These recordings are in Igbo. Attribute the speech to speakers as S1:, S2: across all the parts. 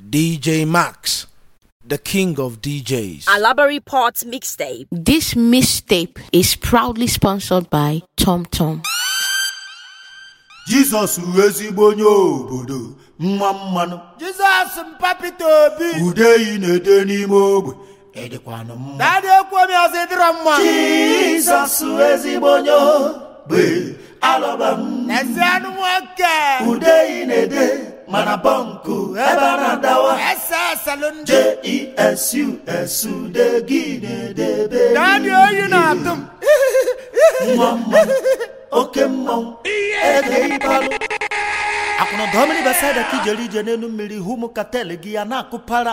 S1: DJ Max, the king of DJs.
S2: Alabari Port mixtape.
S3: This mixtape is proudly sponsored by Tom Tom.
S4: Jizọs ezigbo onye obodo mma mmanụ Jizọs mpapịta obi ude yi na-ede n'ime ogbe edịkwanụ mma dadị okwu omi ọzọ ịdịrọ mma Jizọs ezigbo onye obe alọba m ezi anụ nwoke ude yi na-ede mana bọnkụ ebe eh, a na-adawa jesu de gị na-edebe mma mma oke mmanwụ ede ịbalụ akwụna gọọmenti basaịda ka ijere ije n'elu mmiri hụ ụmụ katel gị ya na-akụpara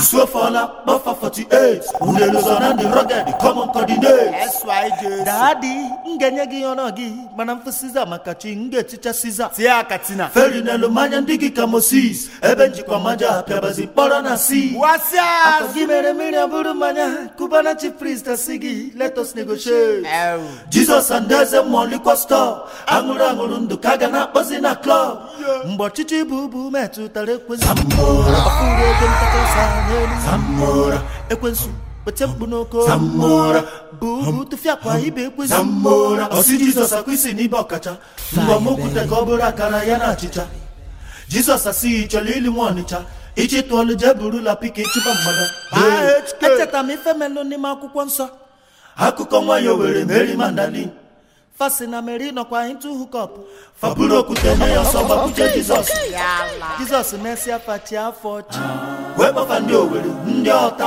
S4: isuofola kpọfa 48 unelozọ na ndị rọged kọmọn kọdinate daadị m enye gị ọrọ gị mana mfụ siza maka chi nga ga-eticha siza tie aka feri n'elu mmanya ndị gị ka mosis ebe njikwa maja pịabazi mkpọrọ na si gị mere mmiri abụrụ mmanya kubana chi prist si gị letos negotiate jizọs adaeze mmụọ likwa stọọ aṅụrụ aṅụrụ ndụ ka a ga na-akpọzi na klọb mgbe ọchịchị bụ ubu metụtara ekwensu ọfụrụ ego ntakasa n'elu ekwensu kpete mkpu n'oko bụ ubu tụfịa kwa ibe ekwensu ọsị jizọs akwa isi n'ibe ọkacha mbọ m ka ọ bụrụ akara ya na achịcha jizọs asịghị chọrọ ili nwa ọnịcha ichịtụ ọlụ jee la pika ịchụba mmadụ. echetara m ife melụ n'ime akwụkwọ nsọ akụkọ nwayọ were merry mandali fasina nọkwa kwa into hookup ọ bụrụ okwute ya ọsọ gbakwuje jizọs jizọs mesịa fachi afọ chi wee ndị owere ndị ọta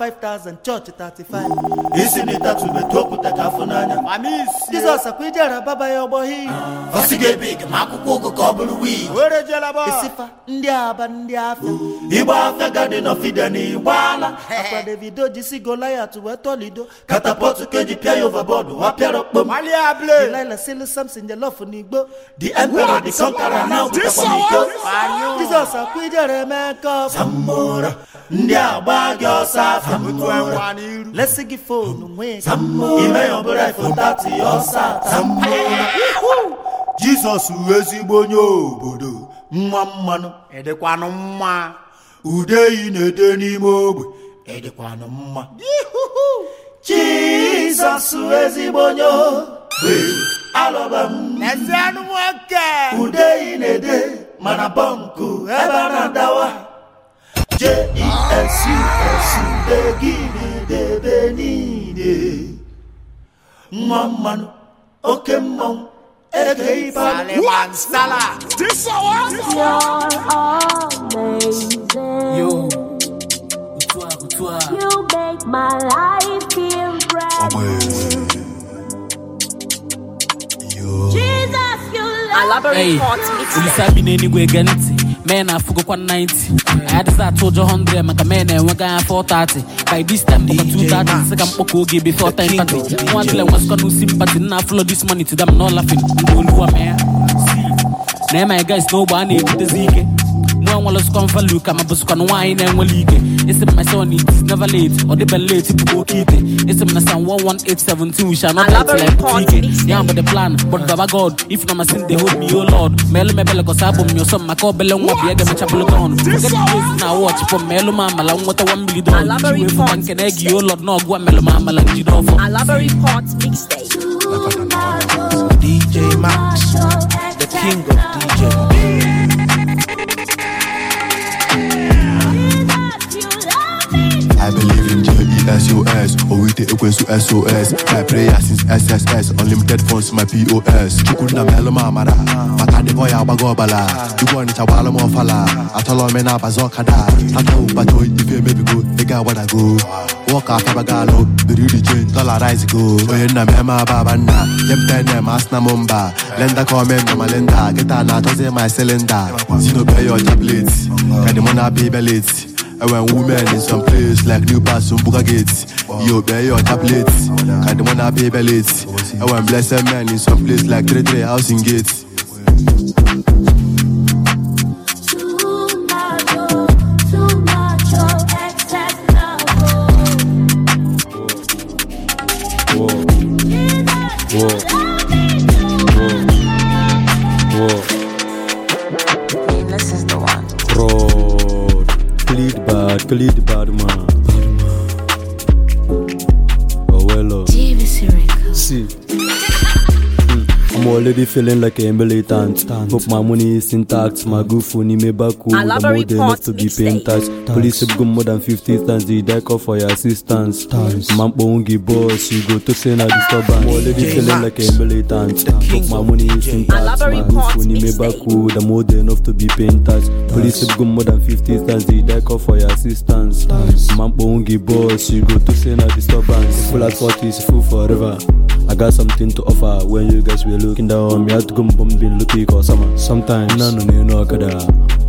S4: 5000 chọọchị 35 isi na okwute ka afọ n'anya jizọs akwa ije ara baba ya ga ebe ike ma akwụkwọ ụgụ ka ọ bụrụ ndị aba ndị afịa ịgba afịa gadin ofide na ala. akwa davido jisi golayat wee tọlido katapọtụ pịa the love for Nigbo. The emperor, the conqueror now, this Nigbo. Jesus akwide Remeka. Zamora, ndị agba gị ọsọ afọ. Let's give phone nwee. Zamora, ime ọbụla ifo tati ọsọ. Zamora, Jizọs ezigbo onye obodo nwa mmanụ. Ude na-ede Jizọs ezigbo alọba m ezianụ nwoke ude ị na-ede mana bọnkụ ebe a na-adawa jesu gị na-edebe niile nwa mmanụ oke mmanwụ eke ibe
S2: You make my life feel
S3: bright.
S5: olisa bi n'enigwe ege ntị mee na afụgokwa 90 adịghị atụ ụjọ 100 maka mee na-enwega ya 430 by this time dọka 230 sị ka mkpọkọ oge before time party nwa dịla nwasikọ n'usi mpati nna afụlọ this money to them no laughing ndị oluwa na ema guys a na-ebutezi ike mgbe enwere sụkọ mvalụ ka ma bụzụkwa na na-enwere ike esi my son it's never late ọ dịbe late bụ oke ite esi na san 11817 we shall not die ike the plan but baba god if na sin dey hold me o oh lord ma elu mebele kọsa abụ m nyọsọ m maka obele nwa bụ ege mecha na watch ma oh elu ma nweta 1 nke na egi lord na ma amala njide ọfọ
S6: SOS Owite ekwensu SOS My prayer since SSS Unlimited funds my POS Chukwu nna m elụma amara maka ndị ọya agbago ọbala Igwe ọnịcha gbaala m ọfala atọla ome na-abaza ọkada aka ụbata ife emebigo ego agbadago wọka atabago alụ biri iri chen dọla rice go onye nna m eme ababa nna nye m tene ma asị na m mba lenda ka ome na ma lenda geta na-atọzi ma silinda si n'obe ya ọcha pleti ka dị mụ na-abịa ibe leti And when women in some place like New Pass and Bugagate, you bear your tablet, and the one I pay late. And when blessed men in some place like Three house Housing Gates.
S7: could the bottom already feeling like a militant. Hope my money is intact. My good phone, back home. I'm more than enough to be paying tax. Police have gone more than 50 times. They die call for your assistance. Man, won't boss. You go to say na disturbance. Already feeling like a militant. Hope my money is intact. My good phone, back home. I'm more than enough to be paying tax. Police have gone more than 50 times. They die call for your assistance. Man, won't boss. You go to say na disturbance. Full at is full forever. I got something to offer when you guys were looking down on me. I had to go bumping looking for summer. Sometimes, no, no, no, no, kada.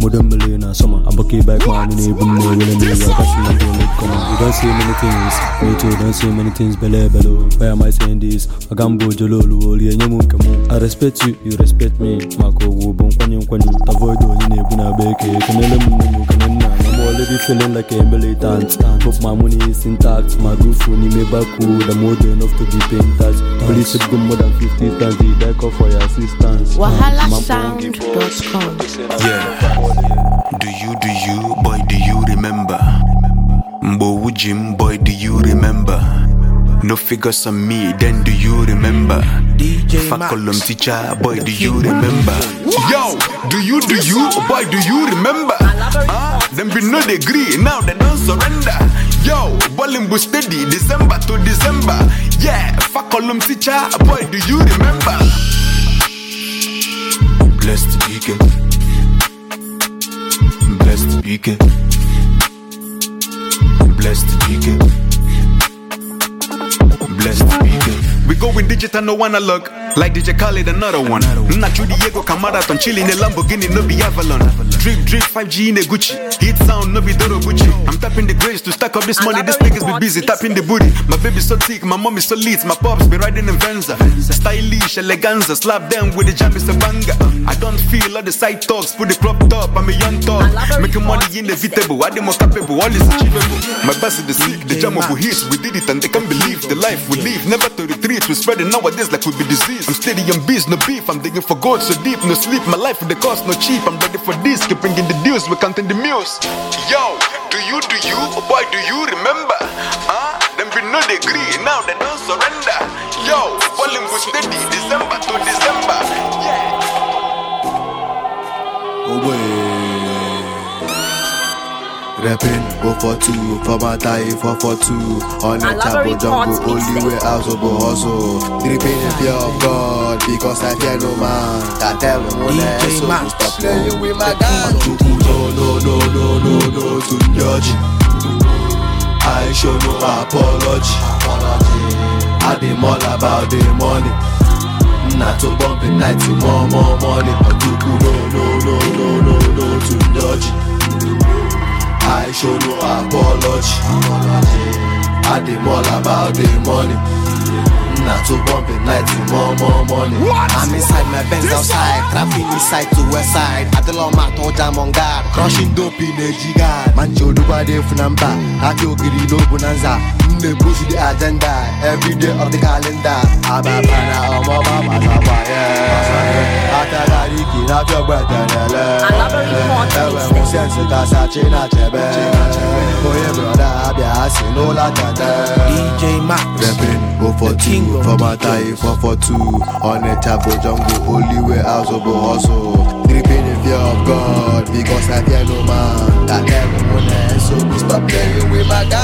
S7: Modern millionaire summer. I'm okay back, man. You know, me, when I'm in come on. You don't see many things. Me too, don't see many things. Bele, bele Why am I saying this? I can go jolo, loli, and you come I respect you, you respect me. Mako, wubon, kwanyo, kwanyo. Avoid the oh, one in a buna bake. Can you let me steady feeling like a militant. Hope my money is intact. My good phone, me back cool. I'm old enough to be paying tax. Police should go more than 50 times. They die call for your assistance. WahalaSound.com. Yeah. Do you, do you, boy, do you remember? Mbowujim,
S8: boy, do you remember? No figures on me, then do you remember? DJ teacher, boy, do you remember? Yo, do you, do you, boy, do you remember? Uh, Them be no degree, now they don't surrender. Yo, ballin' boo steady, December to December. Yeah, fuck column teacher, boy, do
S9: you remember? Blessed go Blessed weekend. Blessed weekend. Blessed
S8: weekend. We going digital, no analog. Like DJ Khaled, another one. Nacho Diego Camara, Tonchili, the Lamborghini, no be Avalon. Avalon. Drip, drip, 5G in a Gucci. Hit sound, no be Doro I'm tapping the grace to stack up this money. niggas be busy tapping the booty. My baby so thick, my mom so lit. My pops be riding in Venza. Stylish, eleganza. Slap them with the jam it's a banger. I don't feel all the side talks. Put the crop top, I'm a young top Making money inevitable. I am more capable, all is achievable. My boss is the sick, jam of hits We did it and they can't be keep bringing the news we counting the muse Yo, do you, do you, oh boy, do you remember? Huh? Ah, them we no they now they don't surrender. Yo, falling with steady,
S7: December to December. Yeah. Oh, boy.
S6: Rapping, go for two, for my tie, for for two. On a chapel jungle, only way out of hustle. Dripping in fear of God, because I fear no man. I tell him when I e so stop playing with my gun. No, no, no, no, no, no, to judge. I show no apology. I dey all about the money. Not to bump in 90, more, more money. Ojuku, no, no, no, no, no, no, to dodge. I show no apology. I dem about the money. na to bump it night to more more money. What? I'm inside my Benz outside, traveling inside to west side. Adela to jam on guard, crushing dope in a jigad. Mancho duba de funamba, akio giri no bonanza. Nne push the agenda, every day of the calendar. Ababana omo mama sabaye. a for tie 442 Onitsha bụ jungle only way azụ hustle dripping in fear of God because I fear no man That devil won't so please stop playing with my no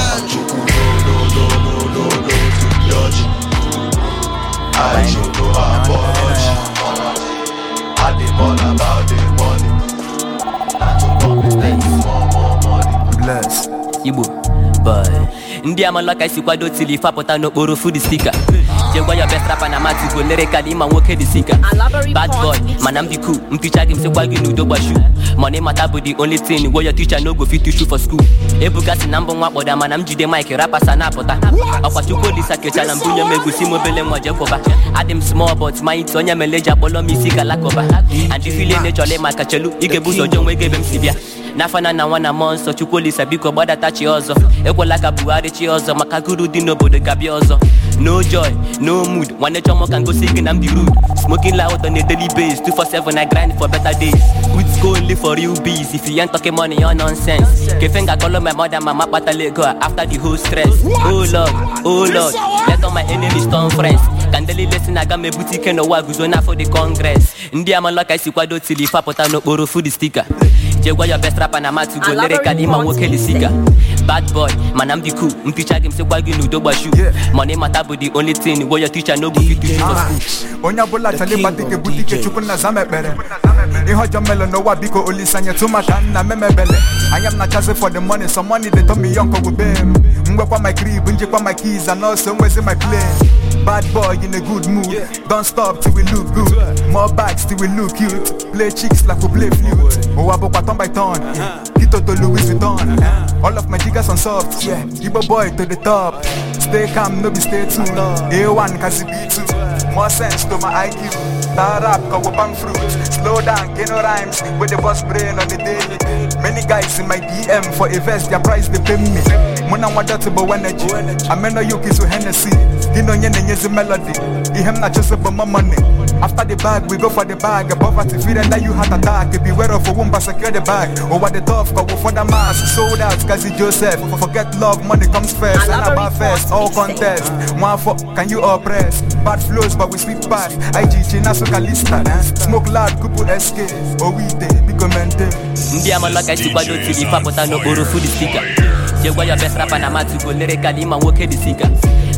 S6: no no no no no to dodge I about
S10: money na boy ndị amala ka esi kwado tili fapụta n'okporo food stika jegwa ya best rapper na matigo lyrically ịma nwoke dị sika bad boy mana m dị cool gị m sịkwa gị n'udo gbashu mana ịmata bụ the only thing wey your teacher no go fit teach for school ebugasị na mbụ nwa kpọda mana m jide mike rapasa na-apụta ọkwa chukwu olisa kechara m bunye m egusi m obele nwa jekwọba adị m small but manyị onye meleji akpọlọ m isi galakọba and ifile nechọla ịmaka chelu kachelu ga-ebu ụzọ jee nwe ebe m si bịa n'afana na nwa na mmụọ nsọ chukwuolisa biko gbadatachi ọzọ ekwela ka buhari chi ọzọ maka guru dị n'obodo gabịa ọzọ no joy no mood nwanne chọmọ ka ngosi gị na di rud smoking loud on a daily base 247 i grind for better days good school live for real bees if you ain't talking money your nonsense kefe nga kọlọ my mother mama kpatala lego after the whole stress oh lord oh lord let all my enemies turn friends ka ndeli lesin aga m ebute ike n'ụwa guzo n'afọ the congress ndị amalọ ka esi kwado tili fapụta n'okporo food stika jegwa your best rapa na matu go lere ka dị mma nwoke bad boy mana m dị cool m ticha gị m sịkwa gị money mata the only thing teacher no go fit teach school
S8: onye ekpere melo n'ụwa biko nna memebele anya m na-achazi for the money some money dey told me young njekwa my keys and nwezi my Bad boy in a good mood. Yeah. Don't stop till we look Play chicks like we play flute. Oh, I Tito uh-huh. to Louis Vuitton. Uh-huh. All of my jiggers on soft. Yeah. Igbo boy to the top. Stay calm, no be stay tuned. Uh-huh. A1 cause B2. More sense to my IQ. That rap we bang fruit. Slow down, get no rhymes. With the boss brain on the day. Many guys in my DM for a vest, their price they pay me. Muna na to energy. I mean no yuki to Hennessy. Din nye na-enyezi melody Ihe m na chose bụ my money After the bag, we go for the bag Poverty fear and that you heart attack Beware of a womb, but secure the bag Over oh, the tough, go for the mass Sold out, Kazi Joseph Forget love, money comes first And about first, all contest One for, can you oppress? Bad flows, but we sleep past IGG, soka Kalista Smoke loud, Kupu SK Owite, oh, Biko Mente
S10: Mbia malaka isi gbado tili Fapụta n'okporo food speaker Jegwa your best rapper na matugo lere kalima nwoke dị singer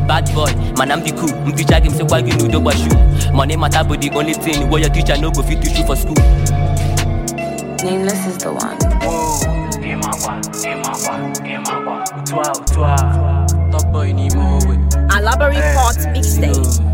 S10: bad boy man i'm the cool m teacher give me say why you no dey gbashu money matter be the only thing wey your teacher no go fit teach you for school.
S3: nameless
S2: is the one. ịmakwa ịmakwa ịmakwa
S5: otu a otu a top boy n'ime
S2: owe. alabari port eh, mixtape.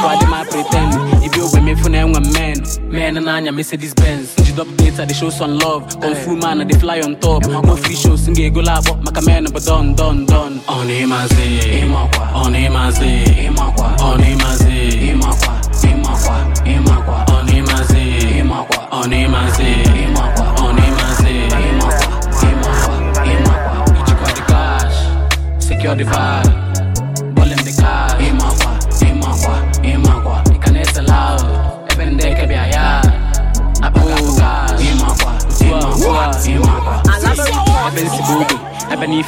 S5: Over them I pretend. If you with me for now, I'm men. Men and Anya Mercedes Benz. The double data, they show some love. Kung Fu man, they fly on top. No free shows, sing go Maka men, but done, done, done. On him I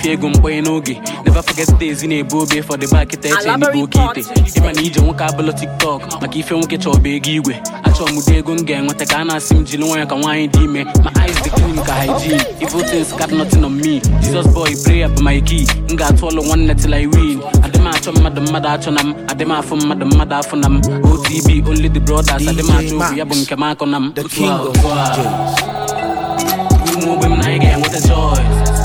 S5: ife ego mkpanye n'oge never forget ezi na-ebu obe for the back eche oke ite ịma na ije nwoke abụlụ tiktok maka ife nwoke bụ ego igwe achọ m ụdị ego m ga-enweta ka a na-asị m jiri nwanyị ka nwaanyị dị ime ma eyes dị clean ka hygiene evil things got nothing on me jesus boy my key m ga-atụ ọlụ nwanne till i win adịm achọ mmadụ mmadụ achọ na m adịm afọ mmadụ afọ na m otb only the brothers adịm achọ ya bụ nke m akọ na m otu ahụ ogbe m na anyị ga-enweta choice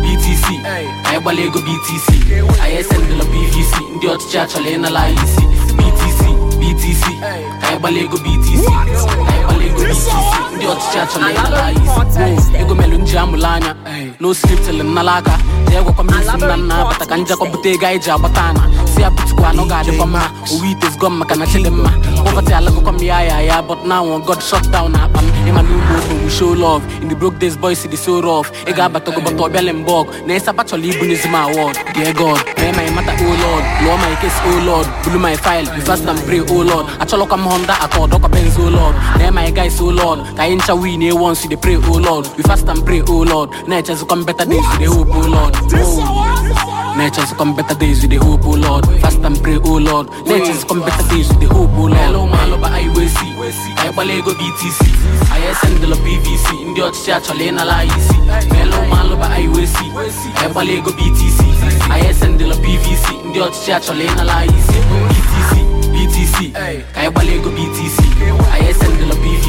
S5: BTC anyị gbala ego BTC anyị esendịla BVC ndị ọchịchị achọla ịnala isi BTC BTC anyị gbala ego BTC mana ndị ọchịchị achọrọ ya ego melụ nji amụla anya na oscript nnala aka jee gwakwa isi nna nna ka njekọ ego anyị ji agbata ana si anọ ga-adịkwa mma owe itezgo maka na chili ma kpọkọta alagokwa ya ya ya but now god down na akpa e in the broke days boys the so ị ga-abatago bata na ịsapa e chọrọ ibunyezi m award e ma o oh lord lụọ o bulu my oh oh o guys, oh Lord. ka ain't shall win here eh, once, they pray, oh Lord. We fast and pray, oh Lord. Nature's come better days, they hope, oh Lord. come better days hope, oh Lord. Fast and pray, oh Lord. Nature's come better days we dey hope, oh Lord. Hello, my love, I will see. I ego btc I send the PVC. In the church, Chalena la easy. Hello, my love, I will see. I BTC. I send the PVC. In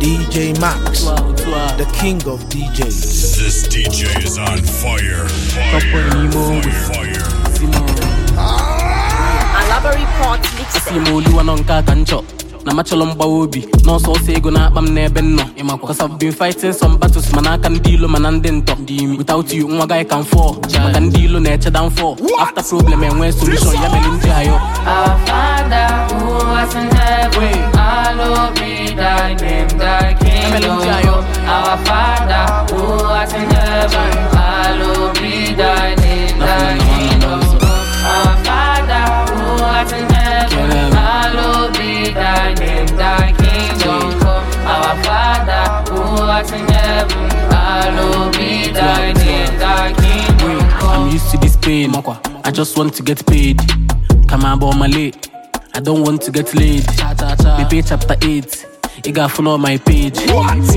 S5: DJ Max, the king of DJs. This DJ is on fire. Fire. Fire. fire. fire. fire. fire fire fire fire fire fire fire na machọlọ mgbawa obi n'ọsọ ọsọ ego na akpa m n'ebe m nọ ịmakwa cause I've been fighting some battles mana aka ndị ilo mana ndị ntọ dị imi without you nwa gaghị ka m fọọ maka ndị ilo na-eche downfall after problem enwee solution ya mere ndị ayọ
S3: Our Father who art in heaven, hallowed be thy name, in
S5: heaven. be thy name, thy I'm used to this pain. I just want to get paid. Come on, but I'm late. I don't want to get laid. Baby, chapter 8. ị ga-afụ my page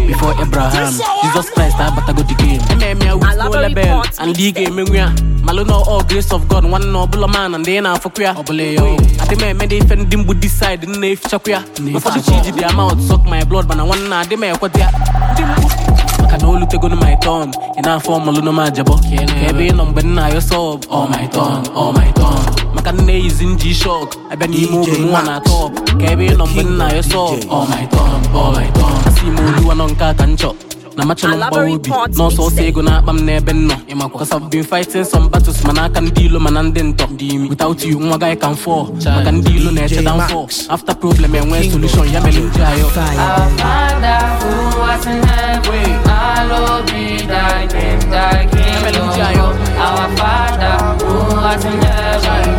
S5: before Abraham Jesus Christ abatago the game ememe ya wuo lebel and ị ga-emenwu na all grace of God nwanne na ọbụla man ndị ị na-afụkwu ya ọbụla ya adị m eme dị ife ndị mbụ decide nna efichakwu ya ụfọdụ chi ji dia mouth suck my blood mana nwanne na adị m ekweta ya ndị mgbu maka na olutegonu my turn ị na-afọ ọmụlụ na m ajabọ ka ebe ị nọ mgbe nna ayọ sọb ọ my turn ọ oh my turn maka nne izi nji shọk abịa n'ime oge nwa na atọ. ka ebe ị nọ mgbe nna ya sọ asị m oluwa nọ nke a ka m chọ na obi n'ọsọ ọsọ ego na-akpa m n'ebe m nọ ịmakwa cause I've been fighting some battles mana aka ndị ilo mana ndị ntọ without you nwa gaghị maka ndị ilo na-eche downfall after problem enwee solution ya mere ayọ
S7: Our Father who in heaven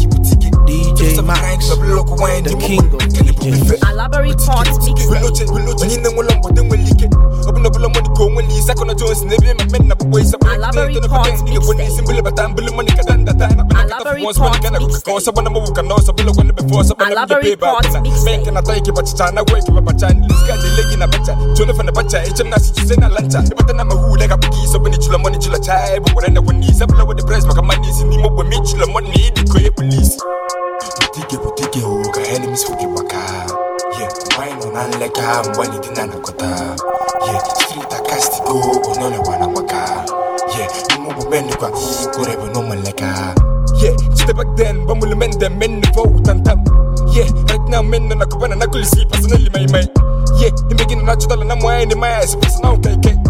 S11: DJ Max, the king of DJs.
S2: Alaba Records
S11: mixtape. Open up a lot money, go when he's a corner Jones, never my men up ways up. Alaba Records mixtape. Alaba Records mixtape. Alaba Records mixtape. Make an attack, but China wake up a chan, lose got the leg in a better. Jonathan a better, HM Nasi to send a lanta. But then I'm a who like a biggie, so when it's your money, you'll a child. But when I the a money, the great Dike bụ o ka enemies hụ waka. maka nwanyị nọ na nleka mgbe anyị dị na anakọta ye street akastigo onye ọlịwa na maka ye ime ụgbọ mendịkwa ikwere bụ n'ụmụ nleka ye chite back then gbamuli mende menne fo tantam. ye right now menne na kubana na kulisi personally my my ye imegina na chọtala na mwanyị ni maya esi personal kaike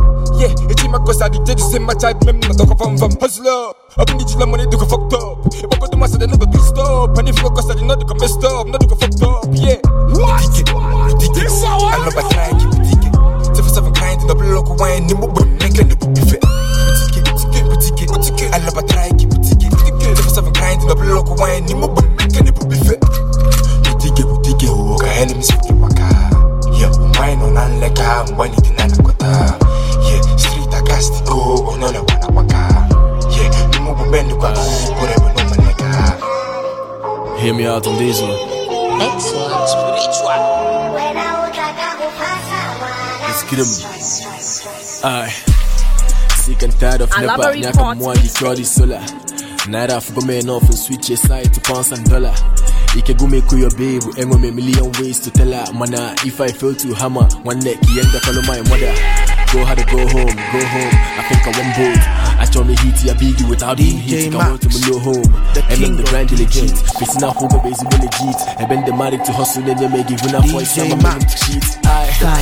S11: Yeah, it's in my cause I did this in my type, même not hustler. do go fucked up. I go to my side, I never do stop. go messed up, go fucked up, yeah. What? This hour? I love a try, kind, double lock, wine, Give me out them diesel. Let's
S12: get him. Alright. Sick and tired of never. Nyaka mwagi sola. Naira afugo enough and switch your side to pounds and dollar. ikegumi kuyo babe enwe me million ways to tell her mana if i fail to hammer one neck yenda follow my mother go hard go home go home i think i want both I strongly heat ya biggie without being heat. Come to my new home. And then the brand legit. Facing a home base legit. And been the married to hustle and then I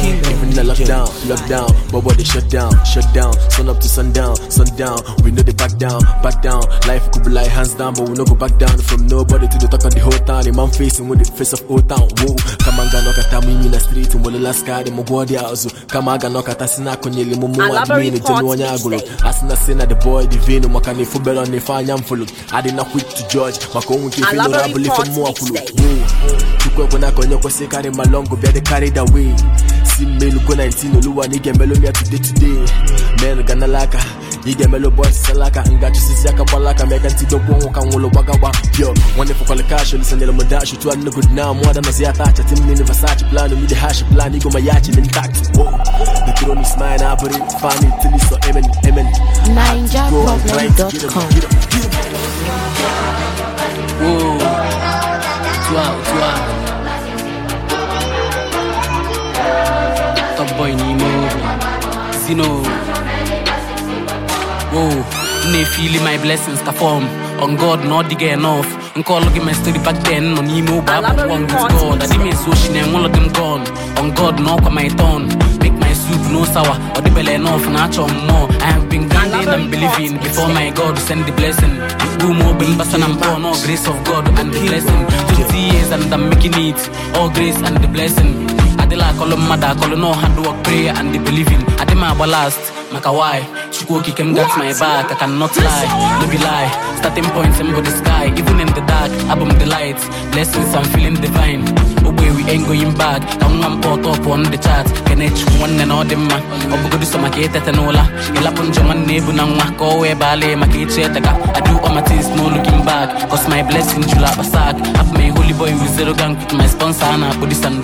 S12: even lockdown, lockdown. But what they shut down, shut to sundown, sundown. We know they back down, back down. Life could be like hands down, but we no go back down from nobody to of old town. Whoa, come on, me in the street. And the Come on, us in a Mumu. in the the boy divino mwaka nifubelo nifanya mfulu na quick to judge maka makongu kifino rabu lifemua kulu chukwe kuna konyo kosekari malongo byade carried away si melu kwa 19 oluwa nigembelomi atude today today men ganalaka ị melo emelụ bọs alaka ngaji aka gbalaka ma ka nwụlụ gbagagba yo nwanne fụkwala kash lisanyere m dash tu anụ good now da nazi ya tacha tim ya na-abụrị fani tili so emen emen
S3: ninjaproblem.com
S5: Top boy Zino. go na feeling my blessings ka fọm on god na ọ dịghị enough nke ọlụ gị my story back then nọ n'ime ogbe akwụkwọ with god adị m ezu ochi na enwe ụlọ dị gone on god na ọkwa my tongue make my soup no sour or ọ dịbele enough na achọ m more i have been grinding and believing before my god send the blessing mkpụm ogbe mbasa and mpọ no grace of god and the blessing 20 years and i'm making it all grace and the blessing adịla akọlụ mmadụ akọlụ na ọha ndị work prayer and the believing adị m agba last maka why chukwu okike m gat my back i cannot lie no be lie starting point m bụ the sky even in the dark abụ m the light blessings i'm feeling divine ogbe we ain't going back ka nwa m pọtọ pụọ n chat kene chukwu nwanne na ọ dị mma ọ bụgodu sọ maka etete n'ụla ịlapụ njọ nwanne ebu na nwa ka ọ wee baala maka echi eteka i do ma my things no cause my blessing jụrụ akpa sack abụ m a holy boy with zero gang with my sponsor a na-akpụ this and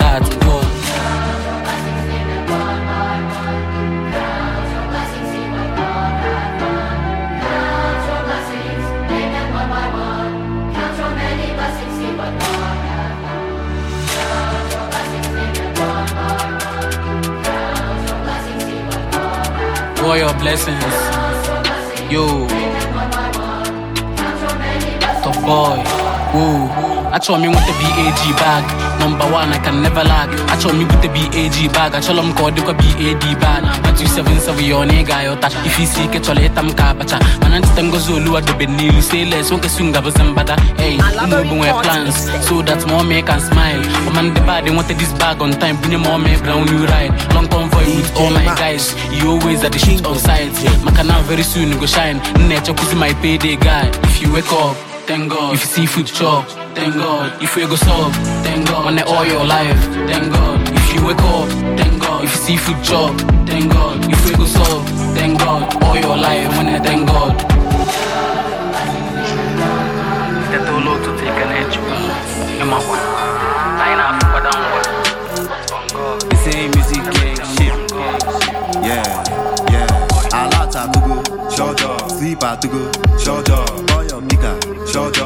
S5: blessings. Yo, the boy, woo. achọrọ m ịnweta bag bag nọmba 1 I can never lack achọrọ m ibute bag bag achọrọ m ka ọ dịkwa bad bad na 277 ya ọ na ị ga-ayọta ife isi ike chọrọ ịta m ka abacha mana ncheta ngozi oluwa dobe n'ilu seles nwoke su ngabụzi mbada hey ụmụ ogbu plans so that mom can smile ndị bad nweta this bag on time bunye ma ọma ebra eh, new ride long convoy with all my guys you always at the shit on maka na very soon go shine echekwuzi my payday guy if you wake up thank god if you thank God. If you go sob, thank God. When all your life, thank God. If you wake up, thank God. If you see food job, thank God. If you go sob, thank God. All your life, when I thank God. That
S13: Yeah, yeah. I like to go, shut up. Sleep at to go, shut up. your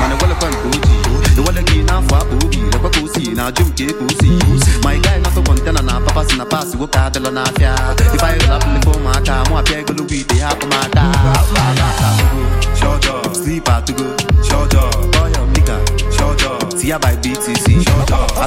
S13: mana gwalakwa nke ojii iwale gị n'afọ akpa na lekwa ka o si na ajụ nke ka si ma ị gaghị nọtụ kọntena na papa si na paasị nwoke adịla n'afịa ife anyị ụlọ apụlịkwa ụmụaka mụ apịa egologo ite ha akpụmada slip atụgo by btc na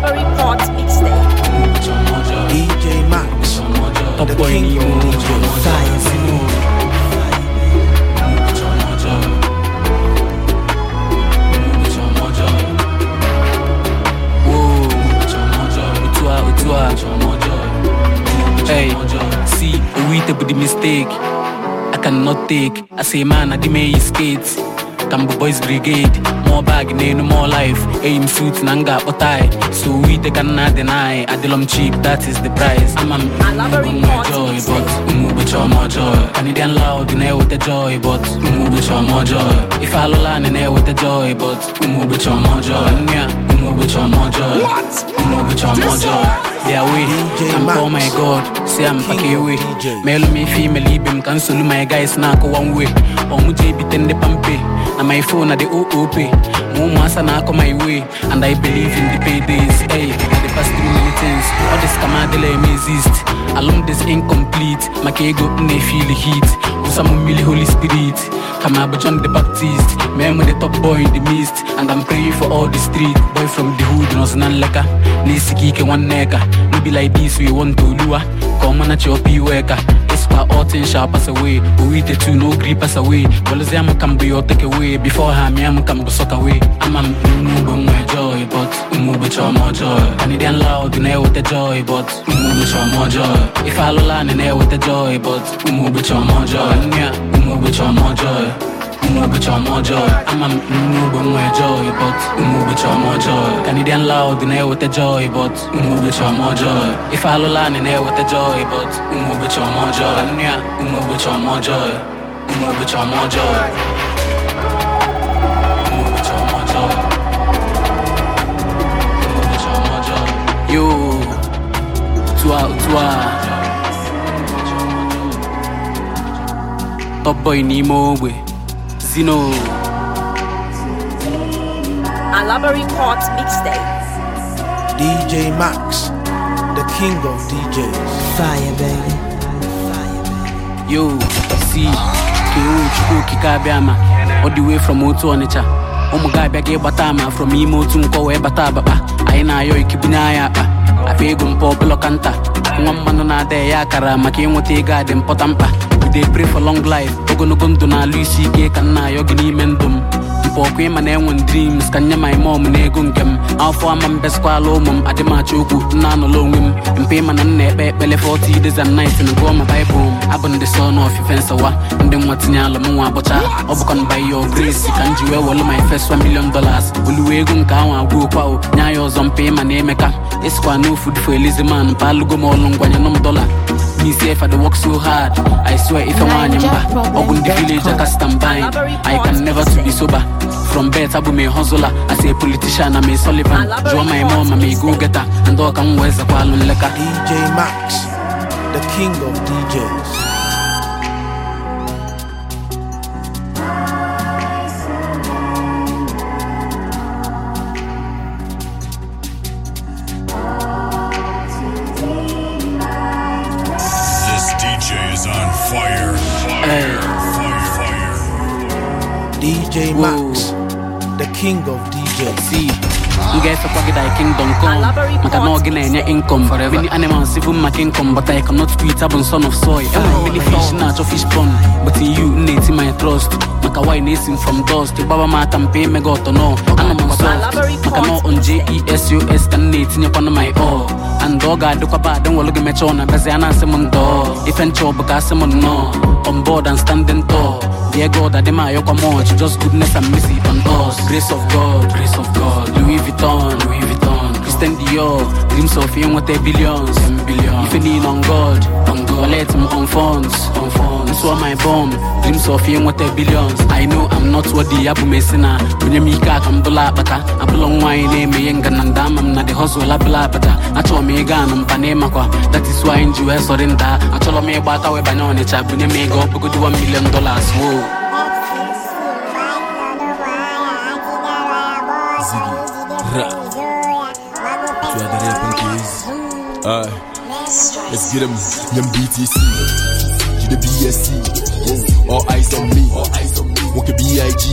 S2: Burberry Port Mixtape.
S1: DJ Max, ọ̀pọ̀ ènìyàn ò jẹ́ fáyẹ̀sì.
S5: Hey, see, we with the mistake. I cannot take. I say, man, I did make skates. ka mbụ boys brigade mụọ bag n'elu mụọ life eyi m suit na m ga-akpọta so we ka nna dị n'ai, adịlọ m cheap that is the price ama m joy but ụmụụbọchị ọma joy Canadian loud na-eweta joy but ụmụụbọchị ọma joy ife alụla na-eweta joy but ụmụụbọchị ọma joy Kumekucha moja, kumekucha moja They are with I'm oh my god Say I'm pakiwi Male me female ibe mkansolu my guys na one way Omu JB tende pampe Na my phone na the OOP Mumuasa na ako my way And I believe in the paydays Hey, the past three minutes All this kamadele exist in incomplete maka ego m na heat hit wụsa mmiri holy spirit ka ma bụ john the baptist mee the top boy in the mist and i'm praying for all the street boy from the hood nọzụ na nleka na-esika ike nwanne ka no be like this we want to lure ka ọ manachi ọpa iwe her all shall pass away we the two no gree pass away Policy I'm come be your take away Before her me I'm come go suck away I'm a move my joy but move with your more joy And it ain't loud with the joy but move with your more joy If I joy ụmụ ụbọchị ọma ọjọọ ama m nne joy but ụmụ ụbọchị ọma ọjọọ Canadian loud na-eweta joy but ụmụ ụbọchị ọma ọjọọ ife alụla na-eweta joy but ụmụ ụbọchị ọma ọjọọ ya ụmụ ọjọọ Yo, n'ime ogbe zino
S2: a library court
S5: dj max the king of djs fire baby yo see ko chukwu okike abịa ama ọ dị wee from otu ọnịcha ụmụ oh gị abịa gị ịgbata ama from ime otu nkọ wee bata abakpa anyị ah, na-ayọ ikibunye anyị akpa akpa ego mpa ọbụlọkanta, nwa mmanụ na-ada ya akara maka ịnweta ego adị mpọta mkpa dey pray for long life ogologo ndụ na-alụ isi ike ka m na-ayọ gị n'ime ndụ m mkpa ọkụ ịma na enwe dreams ka nye my mom na ego nke m afọ ama m beskwala ụmụ m adịmachi okwu nna anọla onwe m mpe ịma na nna ekpe ekpele 40 days and nights na gụọ ma baịbụl m abụ ndị sọ son of nsawa ndị nwa tinye alụ m nwa abụcha ọ bụkwa m by your grace ka m ji wee wọlụ my first 1 million dollars oluwe ego nke ahụ agwụ okwa o nye ya ọzọ mpe ịma na emeka Esquire, no food for a lazy man. Palugo Molong, Guanyanum dollar. Me safe, I work so hard. I swear, if I want him back, ndị the village, I cast and bind. I can never to be sober. From bed, I be a hustler. I say politician, I'm a Sullivan. Draw my mom, I'm a go getter. And dog, I'm where's the Kwalun DJ Max, the king of DJs.
S3: DJ fire.
S1: Fire.
S5: DJ Max, the king of DJs. m ga-efekwa gị di kingdom come maka na gị na-enye income many animals even maka income but I cannot quit abụ son of soil enwere many fish na-achọ fish pond but in you na-eti my trust maka wine na-esi from dust gbaba m aka mpe mega ọtọ nọ ana m maka nje on jesos ka m na-etinyekwana my all andoga duka ba dan waluga me chona beze ana simum do ifen cho buka simum no on board and standing tall dear da adema yo come just goodness and mercy on us grace of god grace of god louis vuitton louis vuitton Christian Dior Dreams of you want a billions If you lean on God On God Let him on funds On funds This was my bomb Dreams of you billions I know I'm not worthy Abu Messina Bunye mika kambula bata Abula wine Eme eh, yenga nandama Mna de hustle abula bata ndị me gana mpane makwa That is why in US or in that Acho lo me we Bunye million dollars Whoa
S12: Alright, let's get them, them BTC. BSC. All eyes on me. All eyes on me. BIG.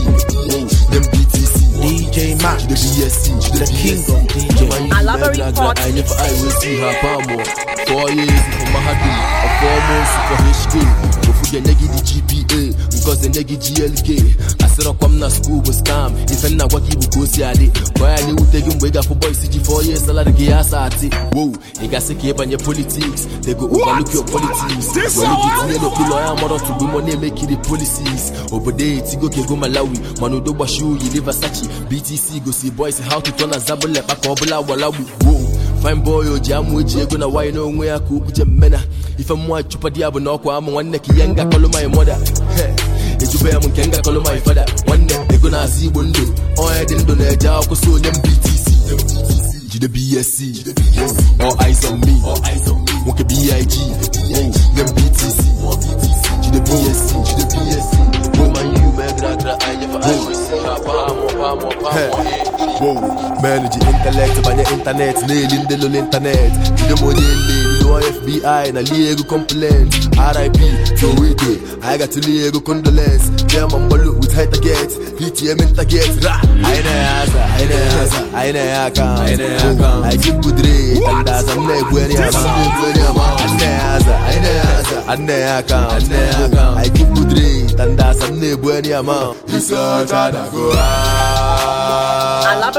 S12: BTC. DJ Max. the BSC. the, the king of DJ. I love a report. I never I will see her for four for nwunye nye gị dị GPA ngozi nye gị GLK asịrọkwa m na skuul bụ skam ife nna agwa gị bụ ka o si adị gwa ya na gị mgbe ị ga ji fọ ye gị ya asa atị wow ị gasị ka ịbanye politiks tego overlook your politics were iji tinye n'okpuru ọya mọrọ tugbu mọ na-emekiri policies obodo etigo kego malawi mana udo gbachi uyi livasachi btc gosi bọysi how to turn azabụlekpa ka ọ bụla walawi wow fine boy o ji amụ eji ego na nwaanyị n'onwe ya ka okwuche mmena ife mmụọ chụpa di ya bụ na ọkwa amụ nwanne ka ihe ngakọlụ my mother ejube ya m nke ngakọlụ my father nwanne ego na-asị igbo ndụ onye dị ndụ na-eje akwụkwọ onye onye mbtc jide bsc all eyes on me nwoke big nye mbtc jide bsc jide bsc woman you megra gra anya for anya Eh. Eh. Wow, manage your intellect, ban your internet, nailing the internet. FBI, na Lego complaint. RIP, so we do. I got to Lego condolence. Them on Balu PTM in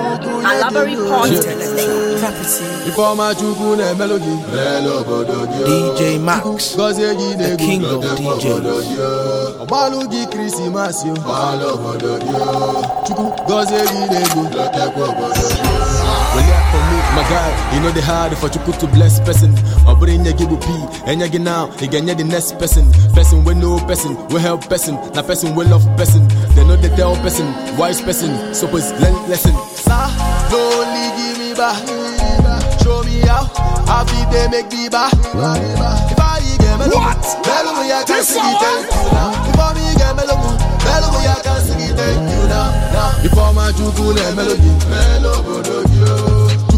S2: and Library Port
S12: The former Chukwu na-emelụ gị DJ Max Gozie gị na-egwu The king of DJs Ọgbalụ gị Krismas Chukwu gozie gị na-egwu Wele for me, my guy, e no dey hard for Chukwu to bless person Ọ bụrụ inye gị P, enye gị now, ị ga-enye the next person Person wey know person, wey help person Na person wey love person They no they tell person, wise person, suppose learn lesson only give me back. Show me how. Happy they make me back. If I get me what? Bello me I can sing it thank me get me lomo, bello me I can sing it thank you now. Now if my juku le melody,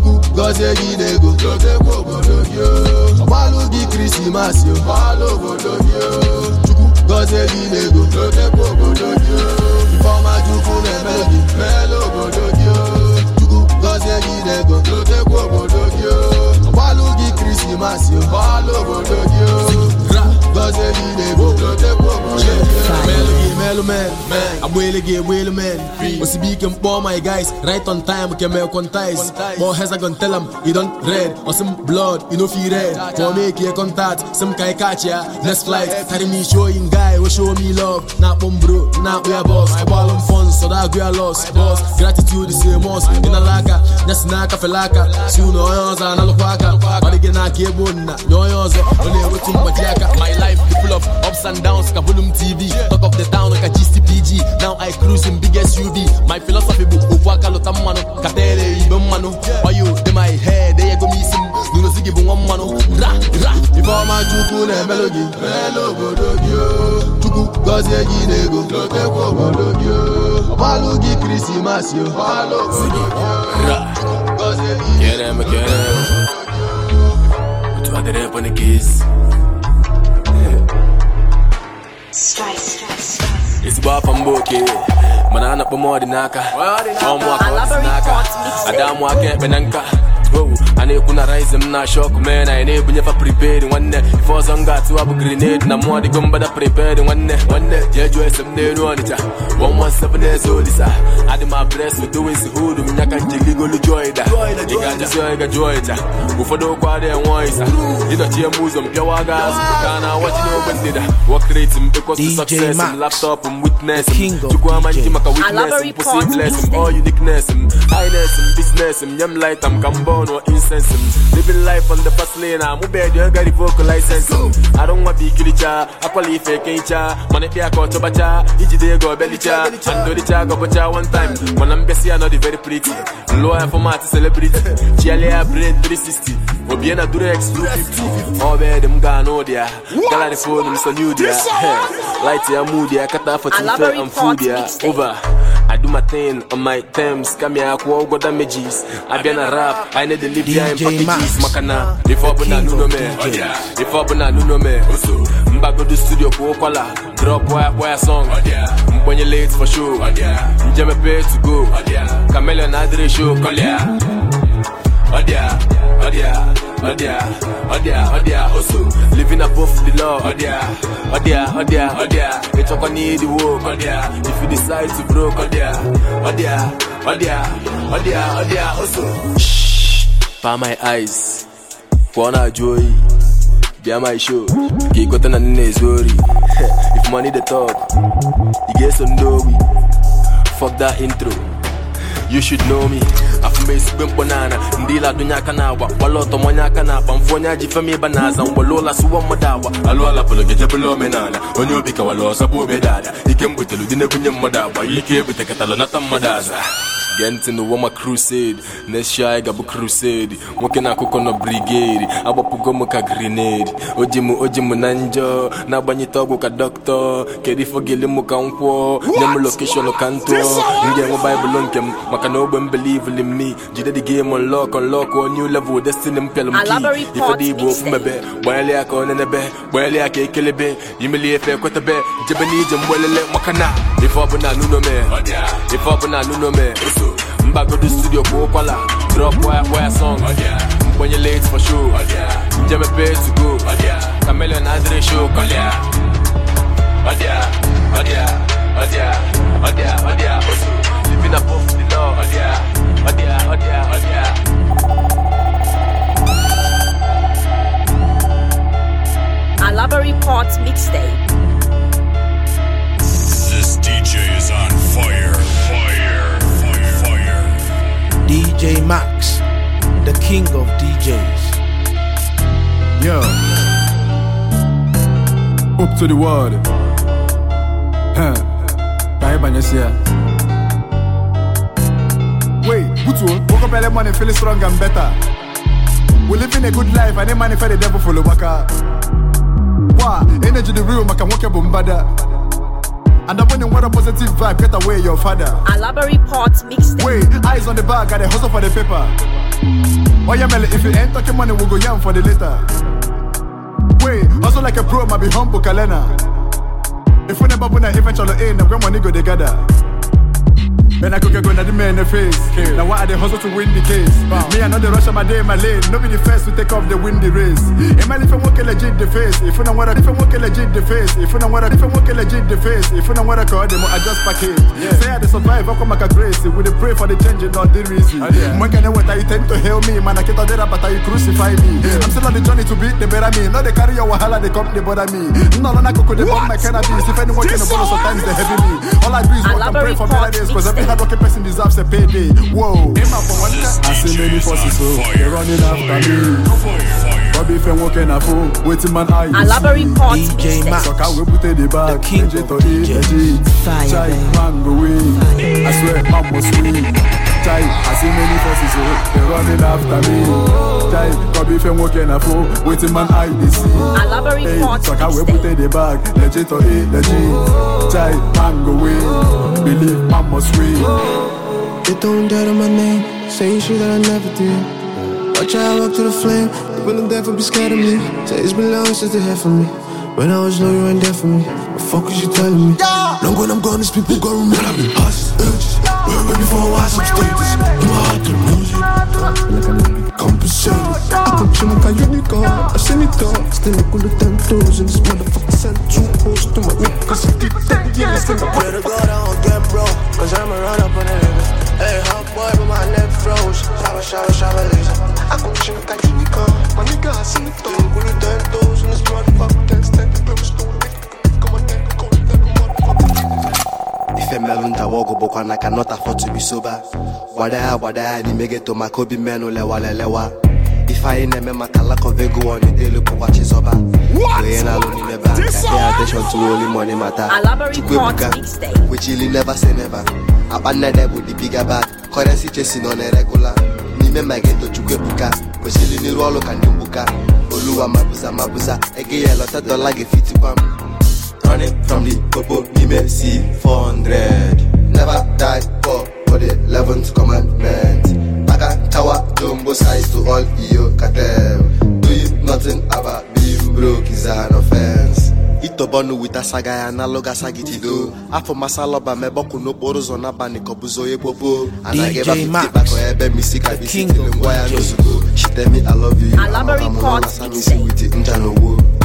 S12: go, goze mo o di Christmas yo, malu bodogyo. Juku go, goze mo bodogyo. onye jide ego dotekwa obodo gị o gbalụ gị krismas gbalụ obodo gị o bọ́sẹ̀ mi lè bó kọ́tẹ́ pọ̀ bọ́sẹ̀ mi lè man, my guys, right on time keme contize. More tell am, you don red, osim blood, you no fi red. For make contact, kai catch ya, next flight. Carry me show guy, we oh, show me love. Na kpọm bro, na kpọ ya boss. m funds, sọdọ loss. Boss, gratitude is a must. na onye ọzọ aka. life full of ups and downs. Kabulum TV, talk of the town, like a GCPG. Now I cruise in big SUV. My philosophy book, Uwaka Lotamano, Katere Ibemano. Oyo, in my head, they go missing. Nuno Ziggy Bumano, Ra, Ra. If all my Juku and Melody, Melody, Juku, Gazia e Ginego, Lotepo Bododio, Balugi Christimasio, Balo, Ziggy, Ra. Get him, get him. Tu vas derrière pour les kisses. ezigbo afọ mba oke mana a na-akpọ ọdịnaaka ọdịnaka ọmụ aka ọdịnaka ada mụ aka ekpe na nka ana ekwu na rice m na shok mee na anyị na-ebunyefa nwanne ife ọzọ m ga-atụwa bụ grenade na mụọ dịgo mgbada priped nwanne nwanne jee jụọ ese m n'elu ọnịcha olisa adị m abres dowes hud m nyaka njigigolu joida ị ga-ajụzi onye gajụ ọnịcha ụfọdụ okwu adịghị enwe ọịsa m ụzọ m pịawa ga azụ ka na awachi n'ogbe ndịda wọkreti m bekọsi sọkses m laptọpụ m witnes m chukwu ama maka witnes m kwụsị bles m all uniqueness m highness m bisnes m nye m laita m ka m bọọ ins sense him. Living life on the fast lane, I'm bed, you got the vocal license. I don't want big kilicha, uh, I qualify fake incha, uh. money pia ko chobacha, each day go bellicha, and do the cha go bacha one time. When I'm busy, I know the very pretty. Lawyer for my celebrity, Chialia bread 360. Obiena Durex 250. All bad, them gano there. Gala the phone, new there. I do my thing on my terms. Come here, I go damages. I be a rap, I need the live behind packages. Makana, if I buna nuno me, if I buna nuno me. Mbago do studio ko kwala, drop wire wire song. When you late for sure, Jame pay to go. Chameleon Adre show, Kolia. Odia, Odia. oh dear, living above the law, oh dear, oh dear, oh dear, oh dear, it's the work, oh dear, if you decide to broke, oh dear, oh dear, oh dear, oh dear, oh dear, also. Shh, by my eyes, wanna joy, be my show, get got an worry. If money the talk, you get some dough, fuck that intro, you should know me. mgbe esigwe mkpọnala ndị ile adụnye aka na agwa gbala ọtọ manye aka na akpa mfe onye aji femi ịba na aza mgbele ụla sụwa mmadụ agwa alụala pụrụ gejebụla omenala onye obi kawala ọsọ bụ obedala ike mgbetelu dị na-ebunye mmadụ agwa ike ebutekatala nata mmadụ aza gee ntị n'ụwa ma crusade na-eshi anyị crusade nwoke na-akụkọ nọ brigade agbapụgo m ka grenade ojimu ojimu oji na njọ na-agbanyete ọgwụ ka dọkịta kedu ife ogele m ka nkwụọ nye m ka m enwe baịbụl nke m maka na ogbe m belivili m jide dị game unlock unlock new level destiny m pịalụ m ki ifedị igbo ofu mebe gbanyere ya ka ọ nenebe gbanyere ya ka ekelebe imeli efe ekwetebe jebe n'ije mgbelele maka na ife ọbụla nunome ife ọbụla nunome mbagodo studio kwuo kwala drop wire wire song mgbenye late for show njeme pay to go chameleon adịrị show kọlịa ọdịa ọdịa ọdịa ọdịa ọdịa osu living above the law ọdịa ọdịa ọdịa ọdịa
S2: mixtape. This DJ is on fire.
S1: DJ Max, the king of DJs.
S9: Yo. Up to the world. Huh. Bye bye, Wait, good one. Woke up early morning feeling strong and better. We're living a good life and they manifest the devil for the waka. Wow, energy the real, maka woke up And I'm winning what a positive vibe, get away your father.
S2: Alabary pot mixed. Wait,
S9: eyes on the bag, and a hustle for the paper. Oh yeah, Melly, if you ain't talking money, we'll go yam for the later. Wait, hustle like a pro, might be humble, Kalena. If we never win, eventually, ain't eh, no grandma, nigga, they gather. When I cook, go na the man the face. Kill. Now why the to win the case? Bow. Me and rush of my day, my lane. No be the first to take off the windy race. Am I if I'm working legit the face? If you don't want to, if I'm working legit the face. If you don't want to, if I'm working legit the face. If you don't want to call them, I just Yeah. Say I the survive, I come grace. We the pray for the change not the reason. Oh, can You tend to help I crucify me. Yeah. I'm still journey to beat the better me. carry your wahala, they come, they bother me. No, no, no, they bomb my cannabis. If anyone can follow, sometimes they heavy me. All I do is I don't care person deserves a payday. Whoa, I see many forces, so they're running after me. Bobby Fen walking a fool, waiting man eye. I love a DJ Max, so can we put the king of Fire, I swear, sweet. chai I see many faces, oh, they running after me. chai come if you walking a fool, waiting man I dey see. I love a report. Hey, we put in the bag, legit or it legit. Child, man go win, believe man must win. They don't
S6: doubt on my name, saying shit that I never did. Watch out, up to the flame. They wouldn't death be scared of me. Say it's been long since they had for me. When I was low, you weren't there for me. fuck is you telling me? Yeah. Long when I'm gone, these people gon' remember me. Hush, Yeah. We're ready for a up status. In
S9: my heart, the music. to like a unicorn. I Still look 10,000. This motherfucker send two posts to my niggas. I did
S6: that, yeah. I swear to God, I don't get broke. Cause I'ma run up on a Hey, hot boy, I like a unicorn. My nigga, I Still This motherfucker two to ife mmerụ ntawa ọgwụ bụkwa na ka not afford to be sober gbada ya gbada ya n'ime geto maka obi mmenụ lewara elewa ife anyị na-eme maka lack of ego ọ na-edelu bụkwa chizọba onye na-alụ n'ime be aka pay attention to only money mata chukwu ebuka wechili never say never akpa bụ the bigger chesi nọ na regular n'ime ma geto chukwu ebuka kwesịrị n'iru ọrụ ka ndị mgbuka oluwa mabuza mabuza ege ya lọta dọla gị fitikwa m running from the purple email see 400. Never die poor for the 11th commandment. Baga tower, jumbo size to all you cartel Do you nothing about being broke is an offense. itobọnụ wita saga ya na alụga sagitido afọ masalọba mebọkụ n'okporo ụzọ n'abalị kọbụzo onye kpopo anaghị ebe fitibakọ ebe misi kabisi tiri ngwa ya n'ozugbo shitemi alọvi yu amasami si witi nja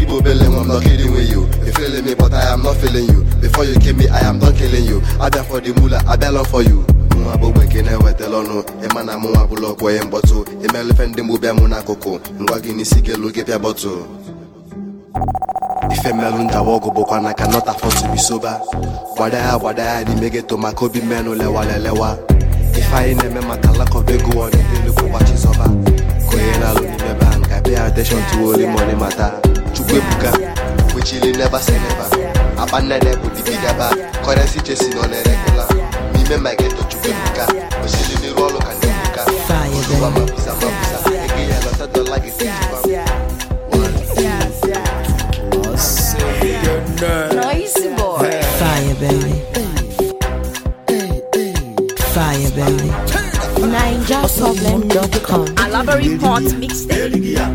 S6: keep rebelling, I'm not kidding with you. You feeling me, but I am not feeling you. Before you kill me, I am done killing you. I for the mula I for you. nwa bụ bekee na-ewetala ọnụ ịma na mụ nwa bụla ọkwọ ihe mkpọtụ imelife ndị mgbu bịa mụ n'akụkụ ngwa gị n'isi gelu gị bọtụ ife mmelụ ndawa ọgụ na ka geto maka obi mmenụ na-eme maka alakọba never say never. Abana de bu dibi daba. Currency chasing on a regular. Me me my get to chukuka. Osili ni rolo kanduka. Osuwa mapisa mapisa. Ege ya lota do like it.
S3: Noisy boy. Fire baby. Fire baby.
S2: NigerProblem.com. Alabary Port Mixtape.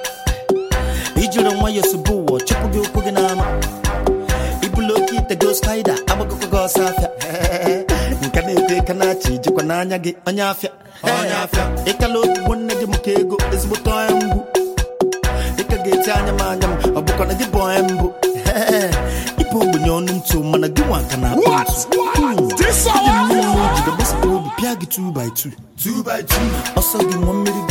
S4: ọcha nke eh, na-eto ịka na-achị ijikwa n'anya gị onye afịa onye afịa ịkala otubo nne gị maka ego ezigbote onye mbụ dịka ga-eti anya m anya m ọ bụkwa na gị bụ onye mbụ ịbụ ogbenye ọnụ ntụ mana gị nwa ka na akpa ntụ obi pịa gị ọsọ gị nwa mmiri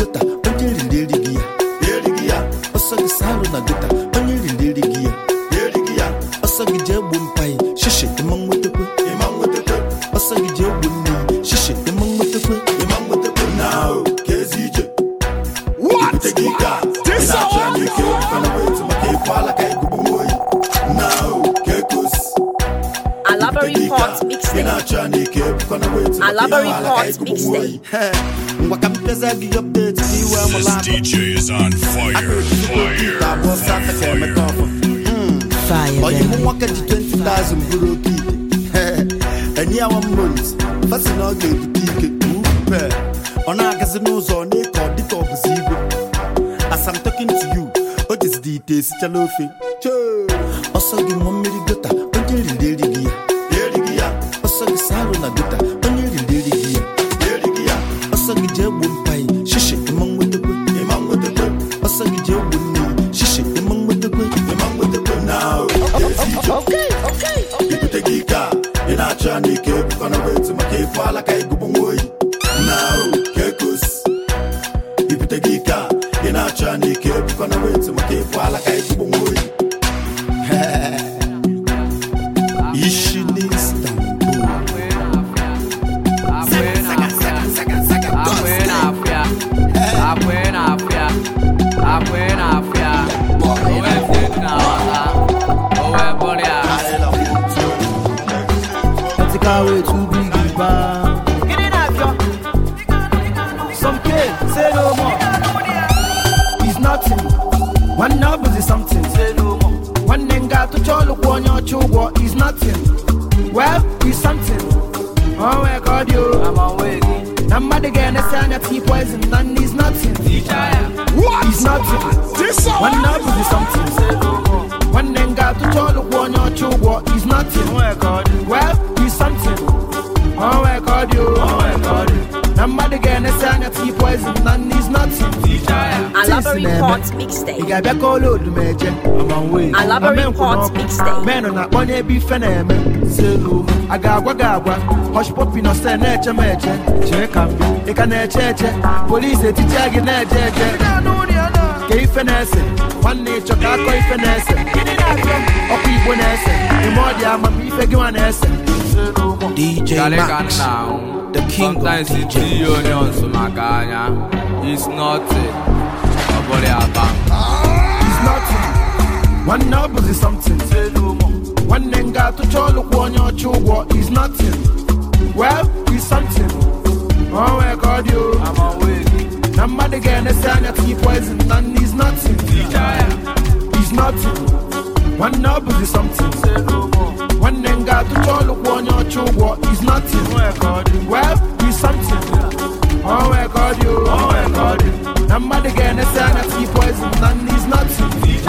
S4: Channel 3
S14: onye ọcha ụgwọ is nothing well is something onwe ka ọ dị o na mmadụ ga-enesi anya tii poison na nne is nothing is nothing nwanne ọ bụzi something nwanne m ga-atụcha ọlụ kwụ onye ọcha ụgwọ is nothing well is something onwe ka ọ dị o na mmadụ ga-enesa anya tii poison na nne is not
S6: ị ga-abịa ka ọla oduma eje
S2: menụ na-akpọnye
S14: ebe ife na-eme a ga-agwa gị agwa hoshpopi na stel na-eche m eche chee ka m ị ka na-eche eche polisi etichia gị na-eje eje ka ife na-ese nwanne ịchọ ka akọ ife na-ese ọkụ igbo na-ese ime ọ dị ama amamife gị nwa na-ese DJ Max
S12: the king Sometimes of DJ. onions maka anya It's nothing
S14: Ọ bụrụ ya ba It's nothing Nwanne ọ bụzi something Nwanne m ga-atụcha ọlụkwụ onye ọcha ụgwọ It's nothing Well, it's something Ọ nwee ka ọ dị o I'm awake Na mmadụ ga-enesi anya tinye poison na nne It's nothing It's nothing Nwanne ọ bụzi something nwanne m ga-atụcha ọlụkwụ onye ọcha ụgwọ is nothing well is something oh. onwe ka ọ dị na mmadụ ga-enesa anya tii poison na nne is nothing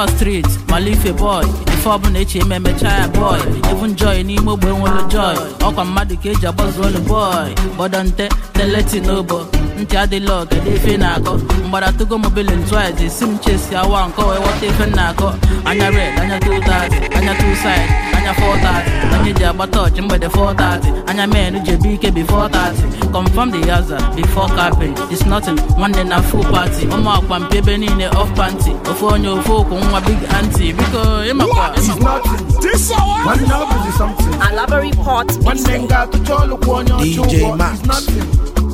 S5: ọ street malife boy ife ọbụla echi eme emecha ya boy even joy n'ime ogbe nwere joy ọkwa mmadụ ka eji agbazu olu boy gbọdọ nte teleti n'obo ntị adịla ọga dị efe na-akọ mgbara togo mobilin twice esi m chesi awa nke wee efe na-akọ anya red anya 230 anya 2 side anya 430 anya ji agbata ọchị mgbede 430 anya men ji ebe ike bi 30 confirm di yaza before capping is nothing nwanne na full party ụmụ akwa mpe ebe niile off panty ofe onye ofu okwu nwa big anti biko ịmakwa